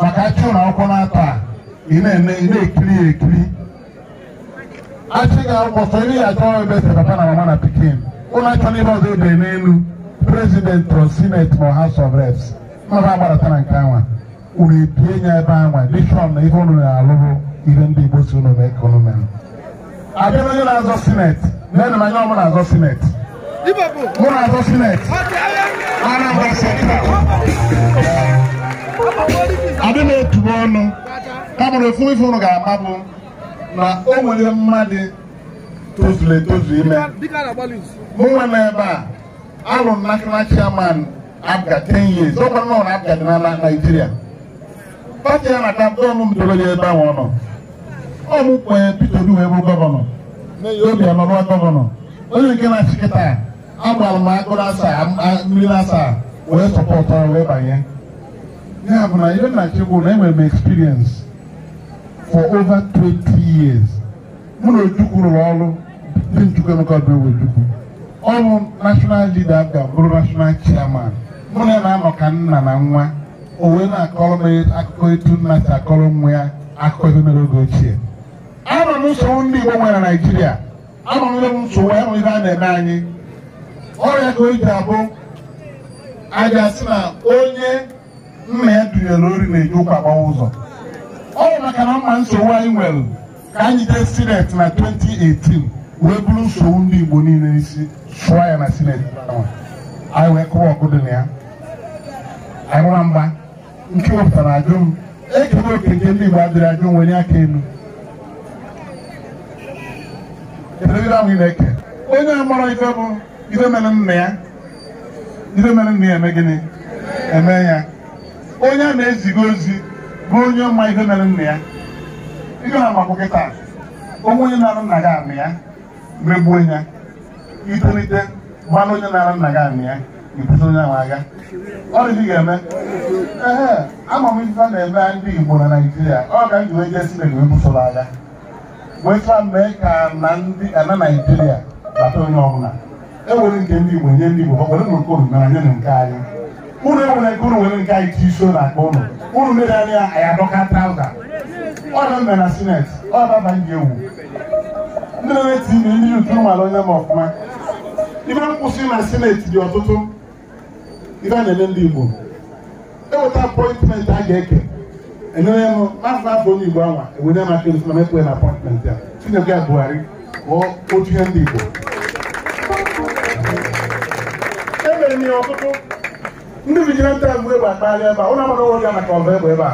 maka achị ụlọ akwụkwọ na-atọ a ị na-ekiri ya ekiri achị ga-akwụkwọ sọ ị ya achọ ebe esi papa na mama na pikin ụlọ achọ n'ebe ọzọ ebe n'elu prezident ọ sineti ma House of Reps ọba agbaratara nke anwa unu ebie nya ebe anwa dishọn na ihe unu na-alụrụ ihe ndị Igbo si unu mee ka unu mere abịara onye na-azọ sineti nene m anya ọmụ na-azọ sineti mụ na-azọ sineti Anambra Central adị na ọnụ kamụrụ efu ife unu ga-ama na o nwere mmadụ tozuru etozu ime mụ nwe n'ebe a anụrụ m national chairman APGA 10 years ọ gwara na abga dị na Naịjirịa pati ya na-ata dọọnụ m dobere ebe ahụ ọ nọ ọ mụ kwenye Peter Obi wee bụ gọvanọ obi anọrọ gọvanọ onye nke na-achị kịta agbara m agụrụ asaa mmiri asaa wee sọpọtara wee banye ya bụ na ibe na chukwu na enwere m experience for over 20 years mụ na Ojukwu rụrụ ọrụ dị Njukwu Emeka Obi Ojukwu ọrụ national leader ga-abụrụ national chairman mụ na ya na-anọ ka nna na nwa o wee na-akọrọ m e, akụkọ etu nna si akọrọ nwa ya akụkọ ebe mere oge ochie anọ m nsogbu ndị Igbo nwere na Naịjirịa anọ m ebe nsogbu anọ ebe a na-eme anyị ọrịa ka o ji abụ aja si na onye nna ya dunyere ori na-eji ụkwa agbawa ụzọ ọ bụ maka na mma nsogbu anyị nwere ka anyị jee sinet na 2018 wee bụrụ nsogbu ndị Igbo niile n'isi sụọ ya na sineti anyị wee kụwa ọkụ dị na ya anyị nwa mgba nke wepụtara ajụ m ekere oke nke ndị Igbo adịrị ajụ nwere aka elu na-eke onye amara ife bụ ife mere nna ya ife mere nna ya eme gịnị eme ya onye a na-eziga ozi bụ onye ọma ife mere nna ya ihe na-amakụ kịta onwe onye na-arụ nna gị amị ya megbuo ya itolite gbalụ onye na-ara nna gị amị ya ibute onye ahụ agha ọ dịghị ga-eme ehe ah, ama m ife a na-eme ndị Igbo na Naijiria ọ ga m ji wee jee Chineke wee busoro agha weta mee ka na ndị ana Naijiria bata onye ọbụla ewere nke ndị Igbo nye ndị Igbo ọ were nke unu mere nye na nke anyị unu ewere nke unu nwere nke anyị chi iso na akpa unu unu mere anya ya adọka trauza ọ na mbe eh, na sineti ọ daba ndị ewu ndị na-eti ime ndị yutu mara onye ma ọfụma ibe nkwụsị na sineti dị ọtụtụ ibe a na-eme ndị Igbo eweta apọịntmentị a ga-eke enyere m n'afọ afọ onye Igbo anwa ewere m aka erusi na mekwe na apọịntmentị a Chinyere ya Buhari ghọọ otu ihe ndị Igbo emere m ihe ọtụtụ ndị vigilante nta egbu egbe akpagharị ebe a ụlọ agbara ụlọ ga maka ọgụ egbe ebe a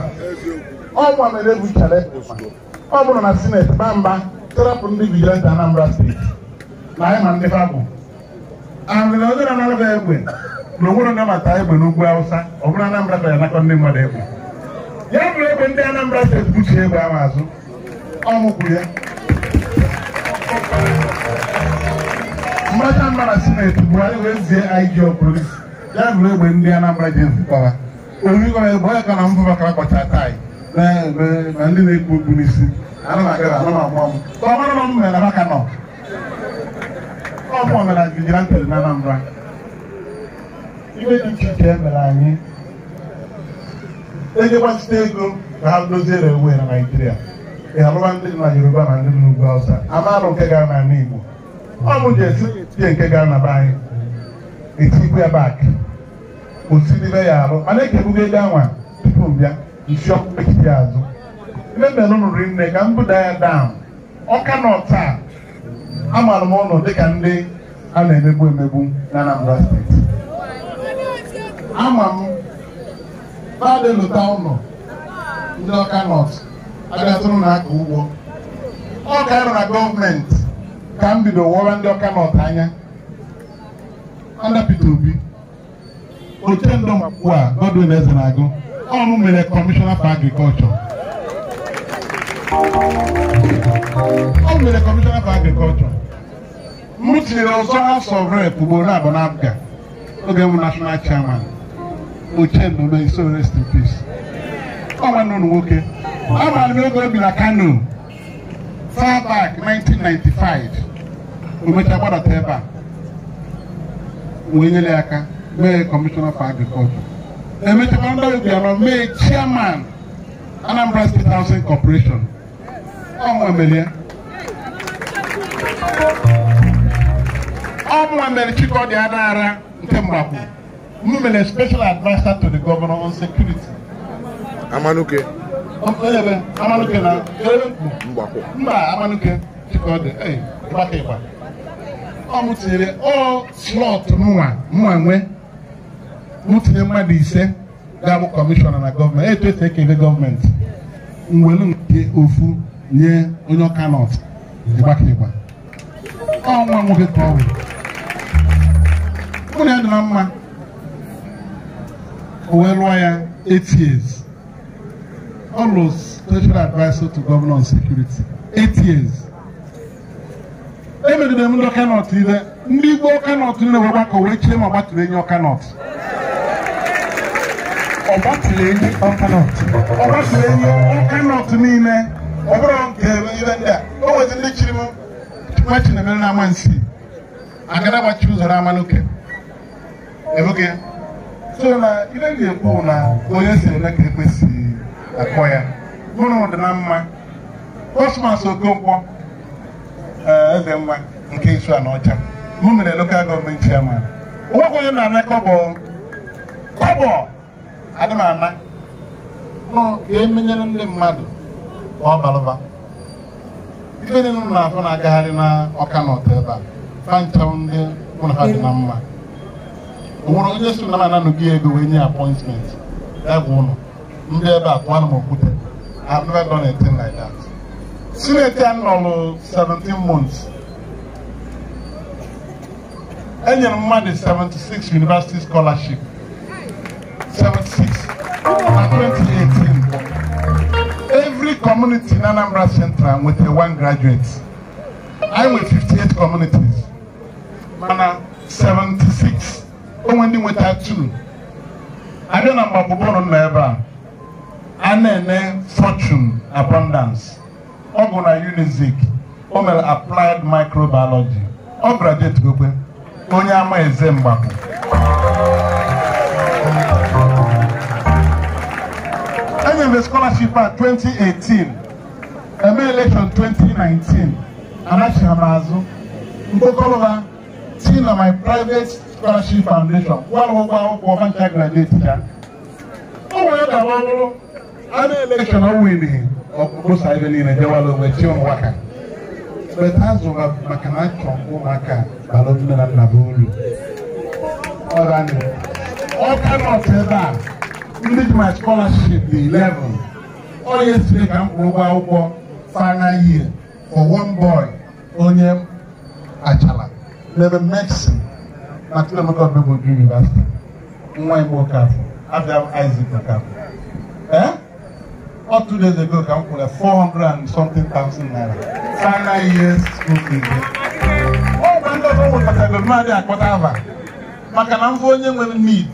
ọ gwa mere egwu ichara ọ bụrụ na sineti baa mba tọrọpụ ndị vigilante Anambra steeti na anyị ma ndị fabụ amịna onye na-anabịa egbe na onwere na mata egbe n'ugwu Awụsa ọ bụrụ Anambra ka ya nakọ ndị mmadụ egbe ya bụrụ egbe ndị Anambra steeti buchie egbe ahụ azụ ọ mụkwụ ya mracha mba na sineti bụ anyị wee zie IG polisi ya bụrụ egbe ndị Anambra ji zụtara origọ egbe onye ka na mbụ maka akpọcha taị na ndị na ekwu okpu n'isi ana m agara ana m amụọ ka na nọ na Anambra dị iche iche emere anyị e ego ka ha doziere ewu na Naịjirịa ị alụba ndị na Yoruba na ndị n'ugwu Hausa amarụ nke gara na Igbo ọ bụ jesi nke gara na e be anyị etikwe bak osidibe ya arụ mana ekebugo ego anwa tupu m bịa nsi azụ Ememelụ riri nne ka m buda ya down ọka nọ taa amaara m ụlọ dịka ndị a na-emegbu emegbu na Anambra steeti ama m naadị lụta ụlọ ndị ọka nọt abịatụrụ na aka ugbo ọ ga-arụ na gọọmenti ka m bido wọra ndị ọka nọt anya Peter Obi ochendo ugbu a Godwin Ezenagụ ọnụ mere kọmishọna for agrikọlchọ o nwere kọmishọna for agrikọlchọ m tinyere ọzọ House of Rep abụọ na oge m nashọnal chairman ochenlo rest in peace ọ nwanne ụlọ nwoke amaara a oge o bi na Kano far back 1995 omecha gbadata ebe a wee aka mee kọmishọna for e ndị chairman Anambra State Housing ọnwa mere ya ọnwa Chikodi Adara nke Mgbakwu m mere special adviser to the governor on security Amanuke Amanuke na Mgbakwu mba Amanuke Chikodi ịgbaka ịgba ọ m tinyere ọ slọt mụnwa mụnwa nwee m mmadụ ise ga-abụ kọmishọna na gọọmenti etu esi ekele gọọmenti mwelu nke ofu nye onye ọka nọt ịgbakịgba ọnwa nwoke ka ọ bụ ya dịra mma o wee lụọ ya 8 years ọ lụrụ special advisor to governor security 8 years emegidere m ndị ọka nọt ile ndị igbo ọka nọt niile wee gbakọ wee chie ma ọ gbatụrụ enyi ọka nọt ọ gbatụrụ enyi ọka nọt niile ọ bụrụ nke ibe ndị a o nwezi ndị chiri m na chinemere n'ama nsi agara gbachi ụzọ n'ama n'oke ebuke so na ibe ga-ekwu na onye si eme ka ekwesị akpọ ya mụrụ dị na mma kọsmas okonkwo eh, eze mma nke isu ọcha. mụ mere lokal gọọmenti chairman nwoke onye na-ana kọbọ kọbọ adị m ana nọ ga-emenyere ndị mmadụ ka ife niile m na na-agagharị na ọka na ọta ebe a fanchaụ ndị ha dị na mma o onye si na m ego wee nye apọịntmentị dagwa ụlọ ndị ebe a pụọ na m okwute I've never done 17 months. m e mmadụ 76 university scholarship 76 na 28 community in Anambra Central with a one graduate. I'm with 58 communities. Mana 76. Only with that two. I don't know about Bobono Neva. Anene fortune abundance. Oguna Unizik. Omel applied microbiology. O graduate gobe. Onye ama eze mgbapụ. gave the scholarship at 2018 eme election 2019 anachigha m azụ mkpokọrọba na my private scholarship foundation walụgwọ akwụkwọ ọbancha graduate ya o wee election but maka na achọ ụmụaka bara na nna uru ndị my scholarship dị 11 ọ yesterday ka mkpụrụ kwụrụ final year for one boy onye achala n'ebe mexi na Chinemeka Odumegwu University nwa ya afọ Abiam Isaac ee two days ago ka m 400 and something thousand naira final year school fees mmadụ akpọta aba maka na m onye nwere need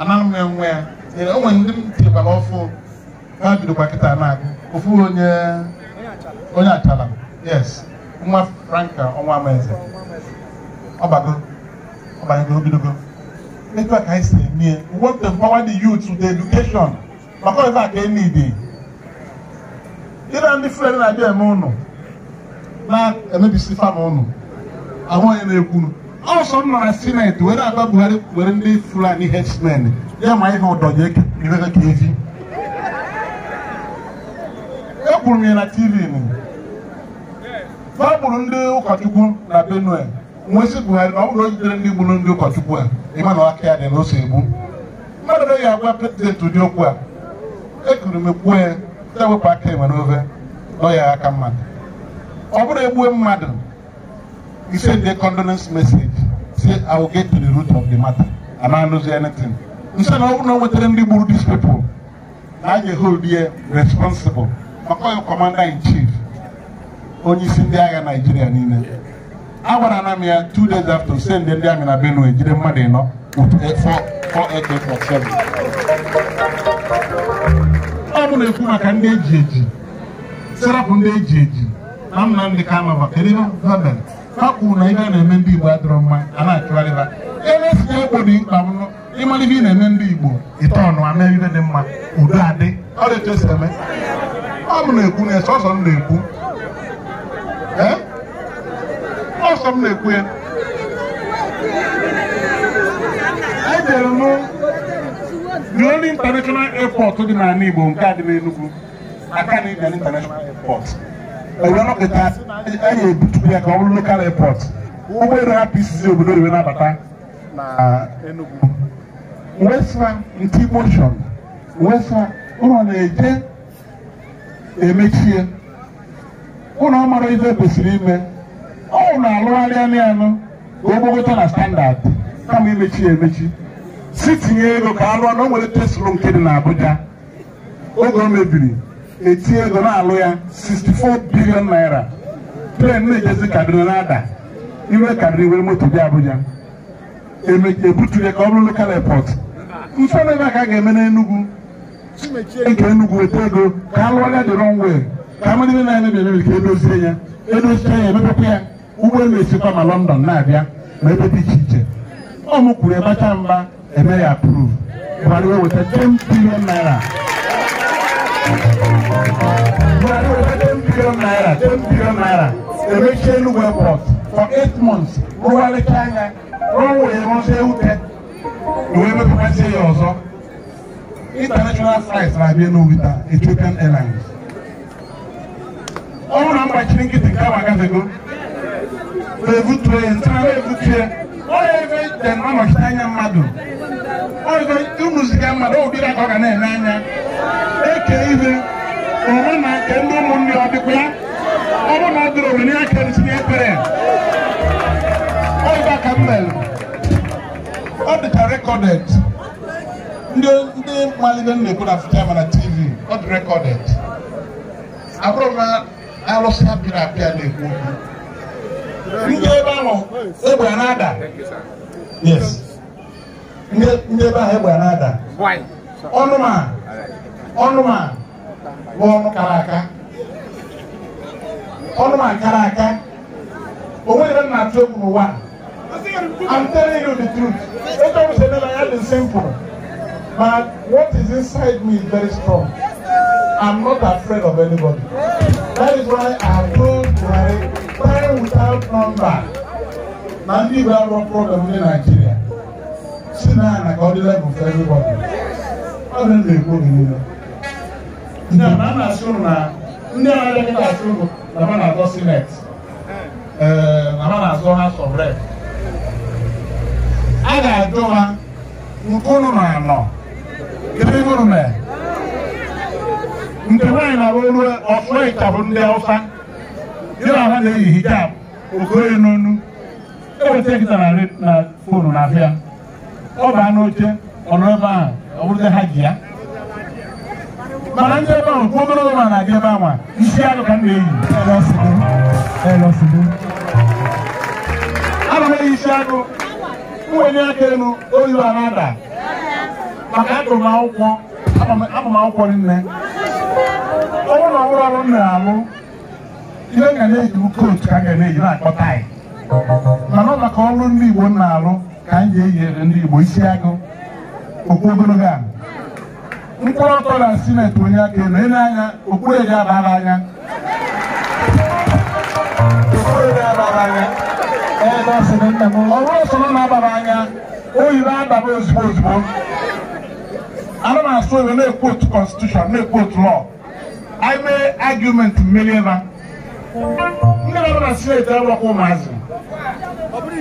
anaghị m enwe ya enwe ndị m tinyekwa n'ọfụ ha bidokwa kịta na-agụ ofu onye onye achala yes nwa franka ọnwa amaeze ọbago ọbanyeghị obidogo etu a ka anyị si eme we want to empower the youth with education maka ọzọ a ka enidi ịra ndị fren na-abịa eme ụnụ na-emebisi fam ụnụ ahụ onye na-ekwunu ọsọ m nọrọ sineti were agba buhari were ndị fulani herdsmen ya ma ihe ọdọnye iwere ka eji ekwuru m ya na tv nụ gbagburu ndị ụkọchukwu na benue nwesị buhari eh. na ọ bụrụ jidere ndị gburu ndị ụkọchukwu a ịma na aka ya dị na egbu mmadụ ya agwa prezidenti ụdị okwu a ekuru m ekwuo ya ndị wepụ aka enwe n'ofe dọ ya aka mmadụ ọ bụrụ egbue mmadụ ise ndị condolence message say I will get to the root of the matter and I lose anything. Instead of not with any rule these people, now you hold here uh, responsible. commander in chief. Only send the agha Nigeria niile I want m ya two days after send them ndị in Benue, Jide mmadụ with a uh, four, four eight eight four seven. I'm going to come back and Set up on I'm not the ha kwuru na ihe a na-eme ndị Igbo adịrọ mma a na-achụgharị ha elesi ya egbo dị mkpa ịmara ihe ị na-eme ndị Igbo ite ọnụ ama ihe dị mma udo adị ọ dị etu esi eme ọ bụ na-ekwu na ọsọ m na-ekwu e? ọsọ m na-ekwu ya ejere m the only international airport dị n'ala Igbo nke a dị n'Enugwu Aka na Akanụ International Airport one of the times na ya ka ọ bụrụ local airport ụgbọelu hapụ isizi obodo riwe nabata na Enugu wesa nke motion wesa ụlọ na-eje emechie ụlọ mara kwesịrị ime ọ na-alụgharịa n'anụ ka ogbogota na standard kama emechi si tinye ego ka na o nwere teslo nke dị na Abuja oge o mebiri etinye ego na-alụ ya 64 bilion naira tren na-ejezi n'ada. na iwe kaduna iwere moto bịa abụja ebutu ya ka ọ bụrụ lokal epọt mfe na ebe a ka ga-eme n'enugwu nke enugwu weta ego ka a lụọrịa dị rọnwe ka amara ime na-emebi emebi ka edozie ya edozie ya emepekwa ya ụgbọelu esikwa ma lọndọn na-abịa ma ebe dị iche iche ọ mụkwuru ebacha mba eme ya approve bara iwe weta 10 bilion naira Buhari will have 10 billion naira, 10 billion naira. Election were bought for eight months. Ruwale Kanga, Ruwale Monse Ute, Nuwebe Kupense Yozo. International flights are being with Ethiopian Airlines. All number chinking to come again ago. They would train, they would train. All of it, then I'm a China madam. ọzọ ịmụziga mmadụ obiri aka ọ ga na-ele anya eke ihe onwe na nke ndị ụmụnne ọ dịkwa ya ọ bụrụ na ọ dịrị owe ya ka esi na-ekpere ọịba ka m mere ọ dịka rekọdet, ndị malide na-ekwu na afrịka mana na tv ọ dị rekọdet. abụrụ na alụsị apịrị apịa na-ekwu okwu ndị ebe ahụ egbe na-ada yes ndị ebe ahụ egbe na-ada ọnụma ọnụma bụ ọnụ kara aka ọnụma kara aka o nwere na-atụ egwu n'ụwa I'm telling you the truth ebe ọ sị na ya dị simple but what is inside me is very strong I'm not afraid of anybody that is why I told Buhari time without number na ndị Igbo arụọ problem ndị Nigeria si na eh, ya na ka ọ dị level for everybody ọ dị na-ekwu oge niile ndị a na-asị ụrụ na ndị a na-elekọta asị ụrụ na ha na-azọ sineti na ha na-azọ ha sọbrek a ga-ajụ ha nke ụnụ na anọ kedu ihe ụnụ mere nke nwaanyị na-arụ olu ọsụịka bụ ndị Hausa ya na na-eyi hijab okoye n'onu eweta nkịta na fonu na afịa ọ baa n'oche ọnọ ebe a, ọ bụrụ bụrụzi ha ji ya mana ndị ebe ahụ kwu obere ụlọ na-adị ebe ahụ isi arụ ka m na-eyi ana m eyi isi agụ mwenye aka elu oyi a na maka agụrụ m akwụkwọ abụ m akwụkwọ nne ọ bụrụ na ọrụ ọrụ m na-alụ ihe ga na-eji kootu ka m ga na-eji na-akpọta anyị mana ọ maka ọrụ ndị Igbo m na-alụ ka anyị ga-eyere ndị Igbo isi agụ Okwu ogologo a mkpụrụ ọtọ na sinet onye aka elu ele anya okpuru ga-abara anya ọ bụrụ soro na-abara anya oyibo ababa ozugbo ozugbo ana m asụ oyibo na-ekwu otu konstitushọn na-ekwu otu lọ anyị mee argument mmeri na ndị nọ na sineti abụrụkwa ụmụazị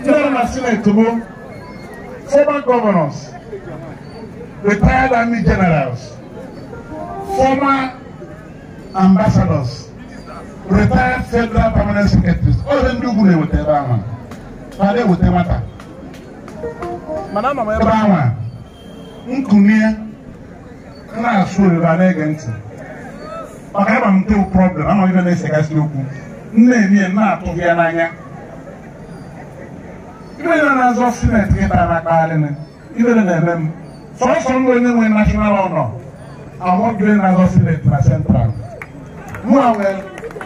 ndị nọ na sineti bụ former governors, retired army generals, former ambassadors, retired federal permanent secretaries. All of them do good with their man. Father with their matter. Madam, I'm a man. Nkunia, na-asụ ebe a na-ege ntị maka ịba m ntewu problem amaghị na ese gasị okwu nne emi na ibe na na-azọ sineti gị tara akpagharị na ibe na na-eme m sọsọ ndị onye nwe central mụa nwee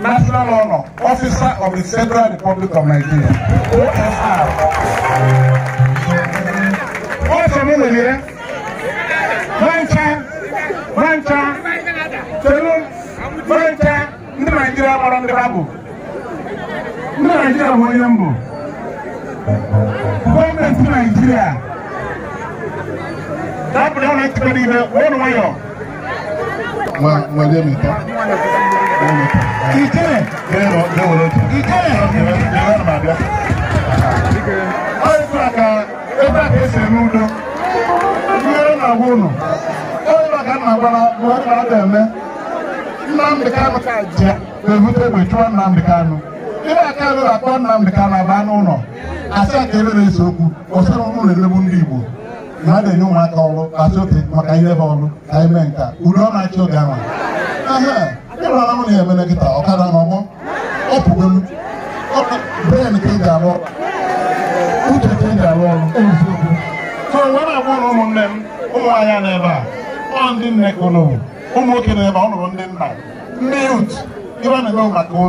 national honor officer of the federal republic of nigeria osr ọsọ m nwere mancha mancha telu mancha ndị naijiria gbara ndị ha bụ ndị naijiria bụ onye mbụ gọọmenti naijiria dabụla ụlọ ikpe niile ụlọ nwayọ ikere ebe a ka esi eme udo ihere na-agwa ụnụ onye ka nna gwara mgbe ọ na eme Nnamdị ka nje na-ebute chụọ ihe aka rụrụ akpa Nnamdị ka na-aba n'ụlọ asị aka ebe na-ese okwu ọsara na-emegbu ndị Igbo na a na-enye ụmụaka ọrụ asị oke maka ihe bụ ọrụ ka mee nka udo ọ na-achị oge ahụ m na ọkada na ọgbọ m ka ị ga uche ka ị ga-arụ ọrụ so wee na ụlọ ụmụnne m ụmụ n'ebe a ọ ndị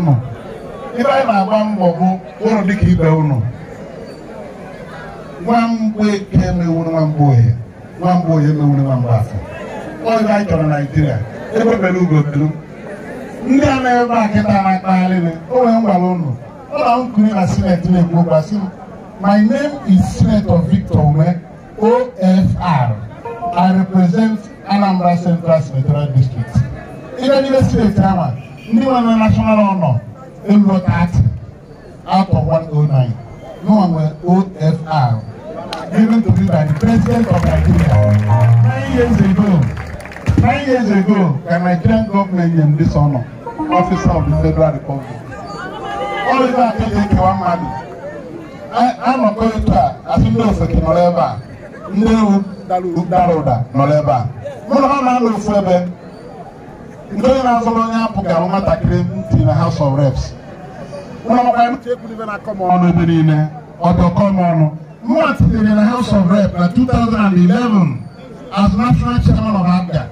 nne ebe anyị na-agba mbọ bụ ụlọ dịka ibe unu nwamgbeke emewuru nwamba ohe nwamba ohe emewuru nwamba afọ ọ ebe anyị chọrọ naijiria ebe bere ugo belu ndị a na-ebe a kịta na-akpagharịrị o nwere ngwara ụnụ ụlọ nkiri na sineti na-ekwu gbasị m my name is senator victor ume ofr i represent anambra central senatorial district ebe n'ime steeti ama ndị nwere national honor Inward Act Act of 109, known as OFR, given to me by the President of Nigeria. Nine years ago, nine years ago, the Nigerian government named this honor, Officer of the Federal Republic. All of that is a asị ndị ofeke nọrọ ebe a ewu dara ụda nọrọ a ha ebe nke onye na-azọrọ onye apụ ga-ahụ nwatakịrị ntị na House of Reps ọnụ ebe niile ọdọkọm ọnụ mma tinyere na House of Reps na 2011 as national chairman of APGA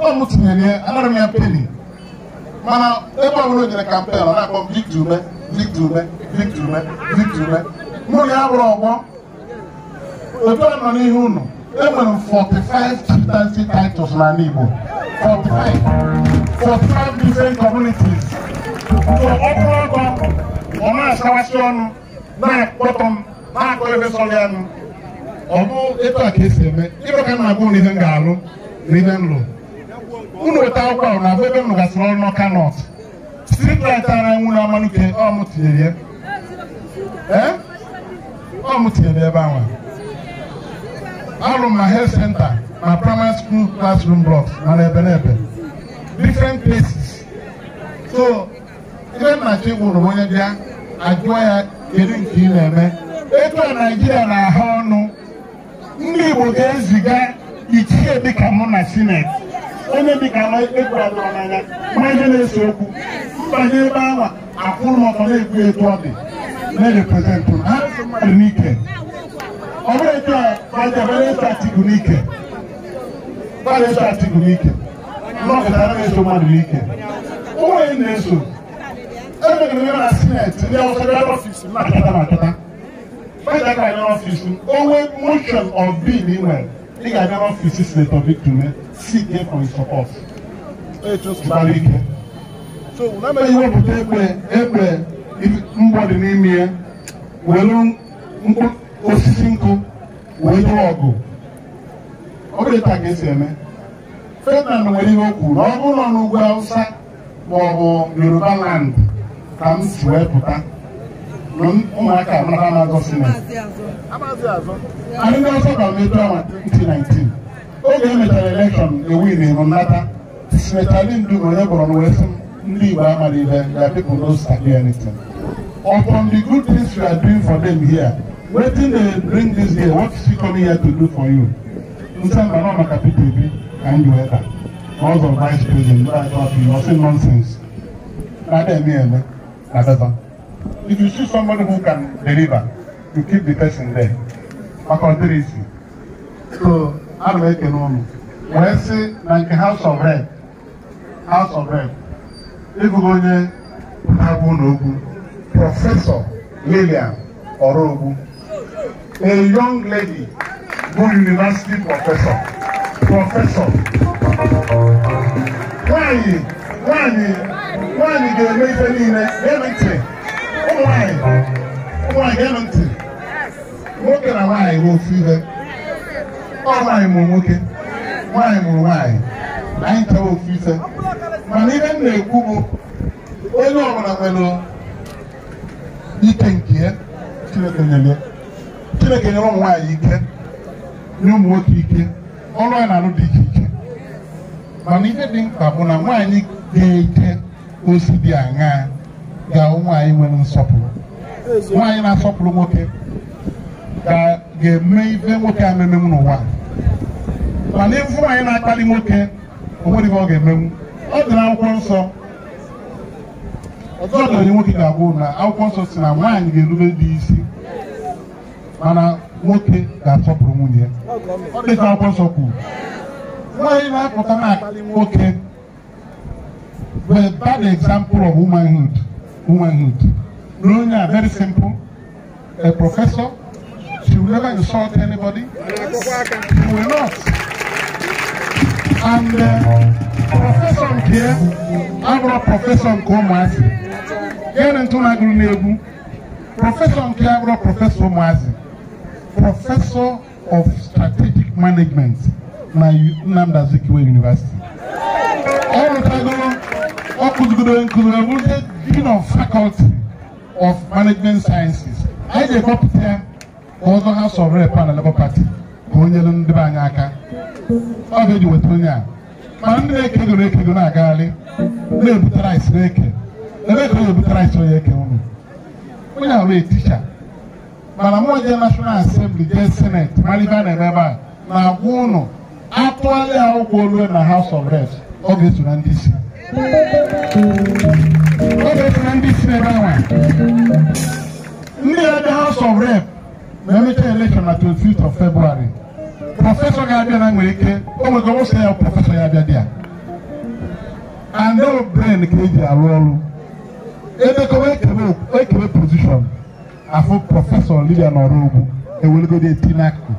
ọ m tinyere ya anara m ya peni mana ebe ọbụla o jere kampen ọ na-akpọ Victor Ume Victor Ume Victor Ume Victor Ume mụ na ya bụrụ ọgbọ otu a nọ n'ihu ụnụ enwere m 45 chieftaincy titles n'ala Igbo 45 45 different communities so ọkụ ọkọ ọ na-asawasị ọnụ na-akpọtọ m na-akọ ebe sọrọ ya nụ ọ bụ etu a ka esi eme ịrụ ka m na-agụ na ihe m ga-alụ na ihe m lụrụ unu weta akwụkwọ ahụ na ebe m nụgasịrị ọrụ n'ọka nọt streetlight ara nwụ na amalike ọ m tinyere ya ọ eh? m tinyere ebe ahụ alụm na health center na primary school classroom blocks na n'ebe n'ebe different places so ihe nna chi gwụrụ onye bịa ajụọ ya kedu nke ị na-eme etu a naijiria na-aha ọnụ ndị igbo ga-eziga ichie dịka mụ na sineti onye dịka n'anya ma ihe na-ese okwu mbanye ebe ahụ akwụrụ ọtọ na-ekwu etu ọ dị na-ereprezentụ ha n'ike ọ bụrụ etu a ka dabere statịkụ n'ike gbara statịkụ n'ike nnọkọta anaghị eso mmadụ n'ike ụmụnye na-eso emegere na sineti ndị ọsọ bịa n'ọfisi na-akata na-akata feda ga abịa m, onwe motion of bill ị nwere ị ga-abịa n'ọfisi senator victor sike for his support gbara ike iwepụta egbe ekpe mgbọdị n'ime ya welu mkpụrụ osisi nkụ wee lụọ ọgụ ọ bụrụ ka esi eme Ferdinand nwere ihe okwu na ọ bụrụ nọ n'ugwu awụsa ma ọ bụ Yoruba land ka m si wee pụta na ụmụaka mara amagosi na anyị ndị ọzọ ka mepe ọnwa 2019 oge e mechara elekshọn ewin ịrụnata sinetali ndu na onye gbọrọ na wee sị ndị Igbo amara ibe ga people no sabi anything upon the good things we are doing for them here wetin dey bring dis here. what she come here to do for you nsamba na maka peter obi ka ndị weta house of vice president wey i talk to you no say nonsense na dem e eme na better if you see somebody who can deliver you keep the person there maka ọdịrịsị so ana m ekele ụnụ wee sị na nke house of rep house of rep ịbụghị onye na-agwa ụlọ okwu prọfesọ lilian ọrụ ogwu a young lady who university professor professor nwanyị ga-eme ihe niile eme ntị ụmụ nwanyị ụmụ eme ntị nwoke na nwanyị bụ ofu ihe ọ nwanyị mụrụ nwoke nwanyị mụrụ nwanyị na anyị chọrọ ofu ife mana ihe m na-ekwu bụ onye ọbụla nwere ike nke ya chineke nyere ụmụ nwaanyị ike nye ụmụ nwoke ike ọrụ anyị na-arụ dị iche iche mana ihe dị mkpa bụ na nwaanyị ga-eke osi dị aṅaa ga-ahụ nwaanyị nwere nsọpụrụ nwaanyị na-asọpụrụ nwoke ga-eme ife nwoke a memenwu n'ụwa mana ịfụ nwaanyị na-akpali nwoke onwere ihe ọ ga-emenwu ọ dị na akwụkwọ nsọ ọzọ nwoke ga agwụ na akwụkwọ nsọ si na nwaanyị ga-erube dị isi mana nwoke ga-asọpụrụ nwunye dịka akwụkwọ nsọ kwuru nwaanyị na-apụta na nwoke were bad example of womanhood womanhood na onye a very simple a professor she will never insult anybody she will not and uh, prọfesọ nke ya abụrụ prọfesọ nke ụmụazị gịnị ntụ na-agụrụ n'egwu prọfesọ nke abụrụ prọfesọ ụmụazị professor of strategic management na Nnamdi Azikiwe University ọ rụtagoro ọ kụzigoro na abụrụzie dean of faculty of management sciences anyị ga-ekpọpụta ya ka ọzọ ha of rep na Labour Party ka o nyere ndị be anyị aka ọ ga-eji weta onye a ma ndị na-ekegoro ekego na-agagharị na ebutara isi na-eke ebe ka ọ ga-ebute eke unu onye ahụ eticha mana ma jee nashọnal asembli jee seneti mara ibe na emeba ebe a na-agwa ụnụ atụgharị ya ụgwọ olue na haus of reps ọ ga-eso na ndị isi ọ ga-eso na ndị isi na ebe anwa ndị ya haus of rep na emechaa elekshọn na 25 of february prọfesọ ga-abịa na nwere ike o nwego ụsọ ya prọfesọ ya abịa ya no brain ka eji arụ ọrụ edekọwa ekebe pozishọn afọ prọfesọ Lydia Norobu ewelego de eti n'akụ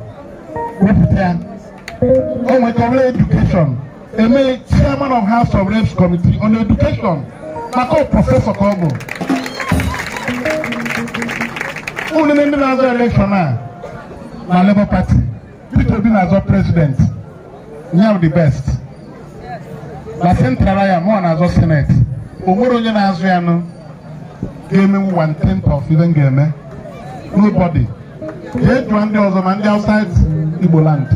wepụta ya o nwekọrọ edukeshọn eme chairman of house of reps committee on education maka prọfesọ ka ọ bụ ụlọ ndị na-azọ elekshọn a na Labour Party Peter Obi na-azọ president nyam the best na sentrala ya mụọ na-azọ senate o nwere onye na-azụ ya nụ ga-emenwu one tenth of ga-eme nobody jee jụọ ndị ọzọ ma ndị outside Igbo land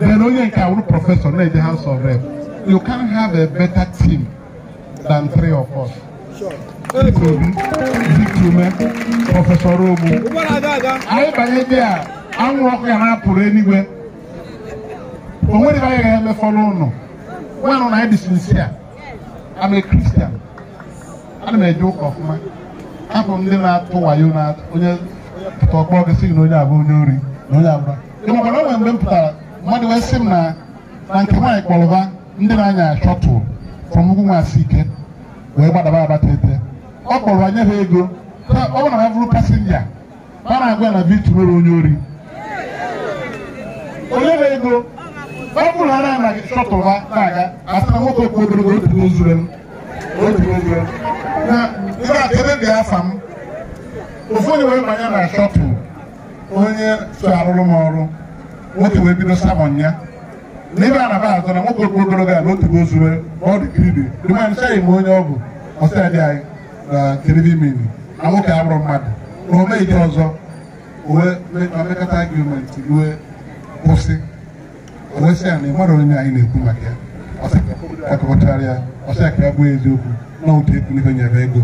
then onye nke awụrụ prọfesọ na-eje House of Rep you can have a better team than three of us Obi Zikume prọfesọ Robu anyị banye dị a anwụ ọkụ ya na-apụrụ enigwe o nwere anyị ga emefọ n'ụlọ. ụnụ nwanụ na anyị dị sincere I'm a Christian ana m eje ụka ọfụma hapụ ndị na-atụ wayo na onye ọkpọ gị sị na onye abụ onye ori na onye abụra ị makwara o mgbe m pụtara mmadụ wee sị m na na nke nwaanyị kpọrọba ndị na-anya shọtụl from ugwu nwaasị ike wee gbadaba abatete ọ kpọrọ anya ha ego ọ bụrụ na ha bụrụ pasenja a na-agwa ya na vitu mere onye ori onye ha ego ọ bụrụ na ha na-anaghị shọtụl ha na-aga asị na nwoke okwu obere otu n'ozure m otu n'ozure m ebe a ebe dị afa m ofu onye wee na shọpụ onye so arụrụ nwoke wee bido samọn ya na ebe a na ba azụ na nwoke okwu ogologo a n'otu ozuwe ọ dị kiribi dịmanyị chaghị m onye ọ bụ ọsịadị anyị na kiribi mini na nwoke abụrụ mmadụ na o meghị ọzọ omekọta argumenti ruo kwụsị owesị ya na ịmara onye anyị na-ekwu maka ya ọsịa ka ya bụ eziokwu na otu ekwu n'ihe nyere ego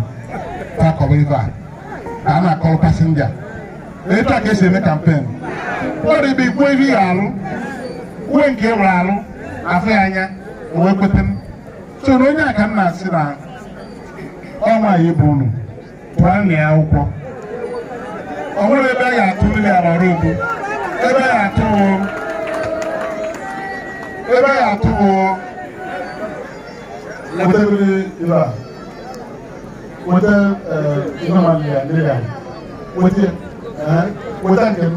kwakọba ebe a ka a na-akọrọ pasenja etu a ka esi eme kampen dị ebe igwe ihe ya arụ uwe nke nwere arụ afọ ya anya wee kweta m so na onye a si na-asị na ọnwa ya bụ unu pụọ na ya akwụkwọ ọ nwere ebe a ga-atụ mmiri ala ọrụ obu ebe a ga-atụ ebe a ga-atụ bụ. wata inaman ya nila wata wata kem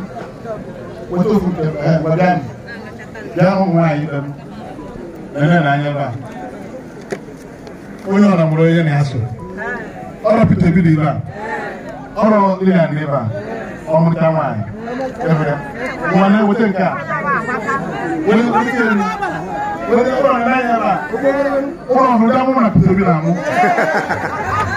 wata fu kem wadani jaamu ŋmaa yi dam nana na anya ba onye ọna mụrụ onye na-asụ ọrụ pete bi dị ba ọrụ ndị na ndị ba ọmụta nwaanyị ebere nwa na weta nke a weta weta weta ọrụ na anya ba ụlọ ọhụrụ dị amụ na pete bi na amụ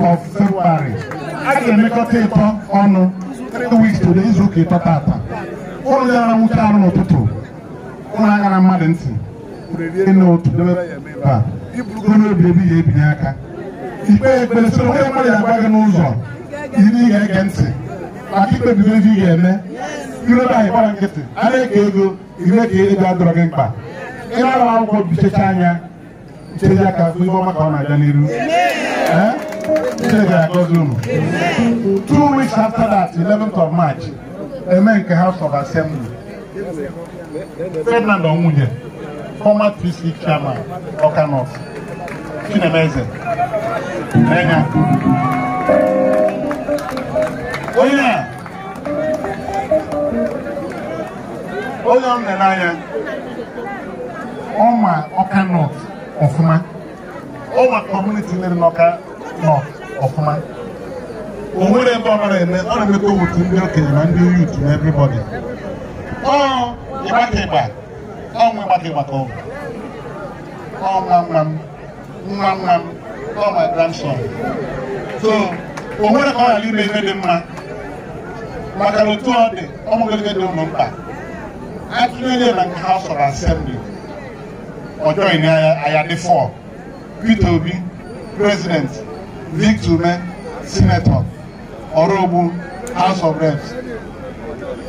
of February a ga-emekọta ịtọ ọnụ 3 weeks today izu ụka ịtọ tata ụnụ gara nwoke arụ n'ụtụtụ ụnụ agara mmadụ ntị n'otu unu obi ebi ya ebinye aka ikpe ekpere soro onye mmadụ ya gị n'ụzọ iri ga-ege ntị maka ị ga-eme nkịtị a na-eke ego gị mkpa ịnara akwụkwọ bichecha anya ọma ka ọ na-aga n'iru Two weeks after that, 11th of March, a man in House of Assembly, Ferdinand Omunye, former PC chairman, Okanos, Chinemeze, Nenya. Oh yeah. Oh yeah, Nenanya. Oma Okanos, Ofuma. Oma community in Oka North. ọfụma o nwere ebe ọ mara eme ọ na-emekọ otu ndị okenye na ndị ịgbaka ịgba ọnwa ịgbaka ọnwa nwa m ọ grandson so o nwere ka ọ ghara ime ihe dị mma maka na otu ọ dị dị ụmụ mkpa atụnyere na nke House of Assembly ọjọọ Obi Vic Zume, Senator, Orobu, House of Reps,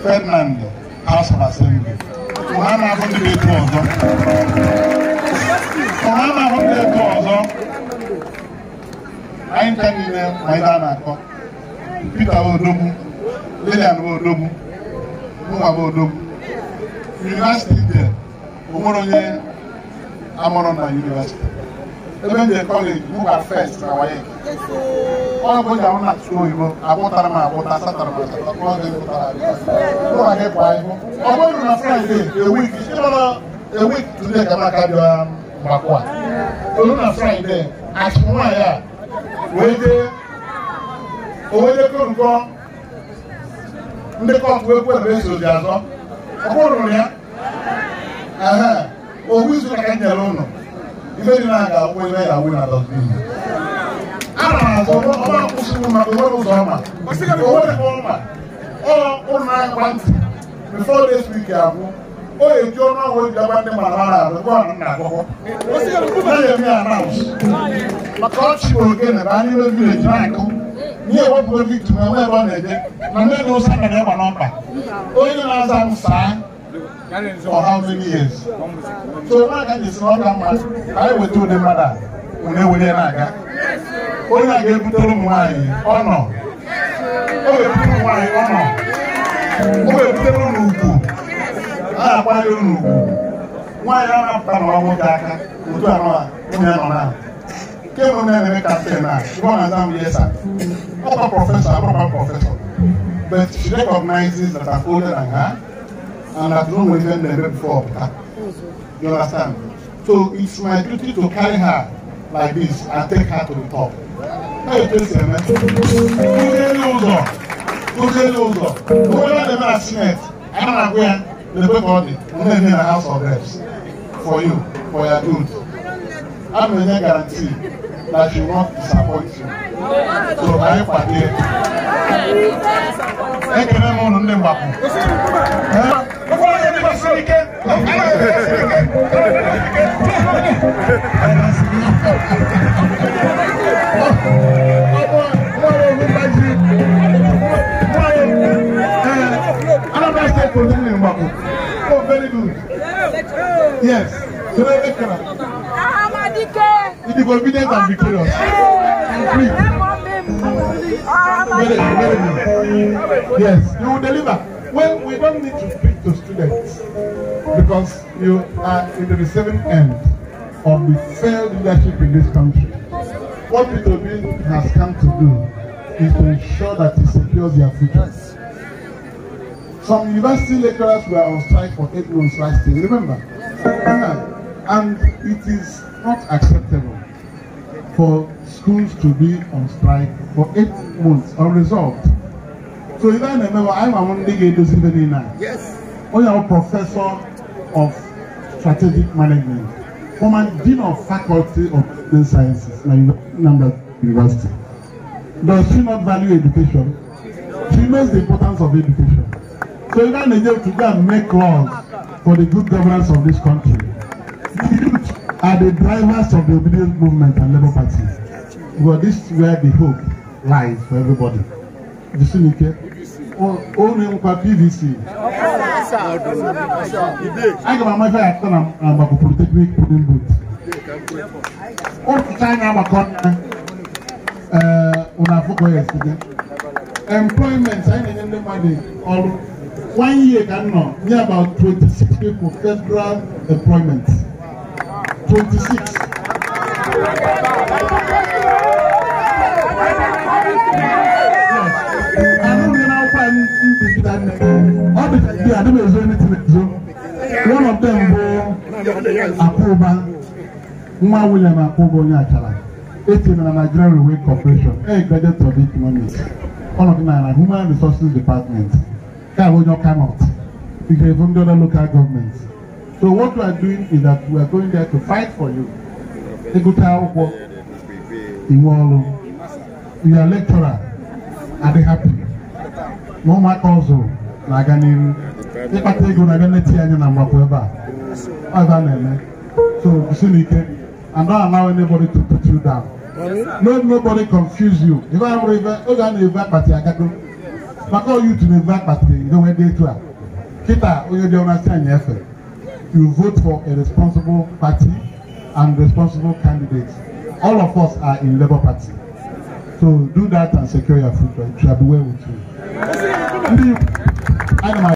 Ferdinand, House of Assembly. Ọha na-ahụ ndị na-eto ọzọ. Ọha na-ahụ ndị na-eto ọzọ. Anyị nka niile ma ihe a na-akọ. Peter Odogwu, Lilian Odogwu, Mụnwa Odogwu. University dị, o nwere onye amụrụ na University. ebe m jere kọleji mụba fest na wayeki ọrụ bụ ji na atụ oyibo agwụtara m agwụta satara m asatọ ọge gụtara ụra gị kwa ibu ọ bụrụ na fraịde ewik ịnọrọ ewik tude ka maka dị mgbakwa olu na fraịde achị nwaanyị a wee jee owedekọ nkọ ndị kọtụ wee kwere eso ji azọ ọ bụrụ ya owu izu ka ka e nyere ụnụ ife dị na aga akwụ ebe ya awụ na dọsbin ana m azọ ọma kwụsịrị maka onwere ụzọ ọma onwere ọma ụlọ na-agba ntị before this week o eji ọnụ ahụ eji agba ndị mara ara arụ na nna eme ya maka na anyị mebi eji na-akụ n'ihe victim enwe ebe ọ na-eje na ndị ụsa na n'ọkpa onye na-aza for how many years so n'aka mma ka anyị ụdị mmadụ a na-aga onye a ga ụmụ nwaanyị ọnọ o wepụtara ụmụ nwaanyị o ụlọ ugwu a na-akwanye nwaanyị a na-apụta na aka otu a nwunye nọ na Ke na a na prọfesọ prọfesọ but she recognizes that I'm older than her and I don't know mention the name before. You understand? So it's my duty to carry her like this and take her to the top. How you take her, man. Kúndélé ụzọ. Kúndélé ụzọ. Kúndélé the man Senate. I'm not going to the body. I'm not in the House of Reps. For you, for your good. I'm going to guarantee that she won't disappoint you. So I am here. Ekele m ụnụ ndị mgbapụ. Sirike very good yes Very, good. Yes, you will deliver. Well, we don't need to speak to students because you are in the receiving end of the failed leadership in this country. What PWB has come to do is to ensure that it secures their future. Some university lecturers were on strike for eight months last year, remember? And it is not acceptable for schools to be on strike for eight months unresolved. So if I remember, I'm among the Yes ó yà wọ́n professor of strategic management former dean of faculty of business sciences na Nambla University does she not value education she knows the importance of education so you don dey to go and make laws for the good governance of this country the youth are the drivers of the obedience movement and labour party but this is where the hope lies for everybody. you see Bisunike, ó ní nípa PVC. Aga m amafe atọ na agbakọ politeknik Pudimbu. Otu anyị na-agbakọ nna ụlọ afọkọ ya esite. Employment anyị na-enye ndị mmadụ ọrụ. One year ka m nọ nye about 26 people federal employment. 26. Yes. I don't know how I'm doing that. Africa bi a dɛmɛ ɛzɔ ne tɛmɛ ɛzɔ one of them bɔ Akoba nwa William Akoba onye achara eti na Nigerian Railway Corporation e graduate of economics all of na na human resources department ka onye ọka north nke efu ndị other local government so what we are doing is that we are going there to fight for you ịgụta akwụkwọ inwe ọrụ your lecturer they happy No matter also na-aga n'ihu ịkpata ego na-abịa neti anyị na mgbapụ ebe a ọga na-eme so gusina ike and don't allow anybody to put you down no nobody confuse you ife amụrụ ife oge a na-ebu akpati agago maka oyi tu na-ebu akpati idowe dị etu a kịta onye dị ọnasị anyị efe you vote for a responsible party and responsible candidates all of us are in labour party so do that and secure your future it shall be well with you. どんなふうに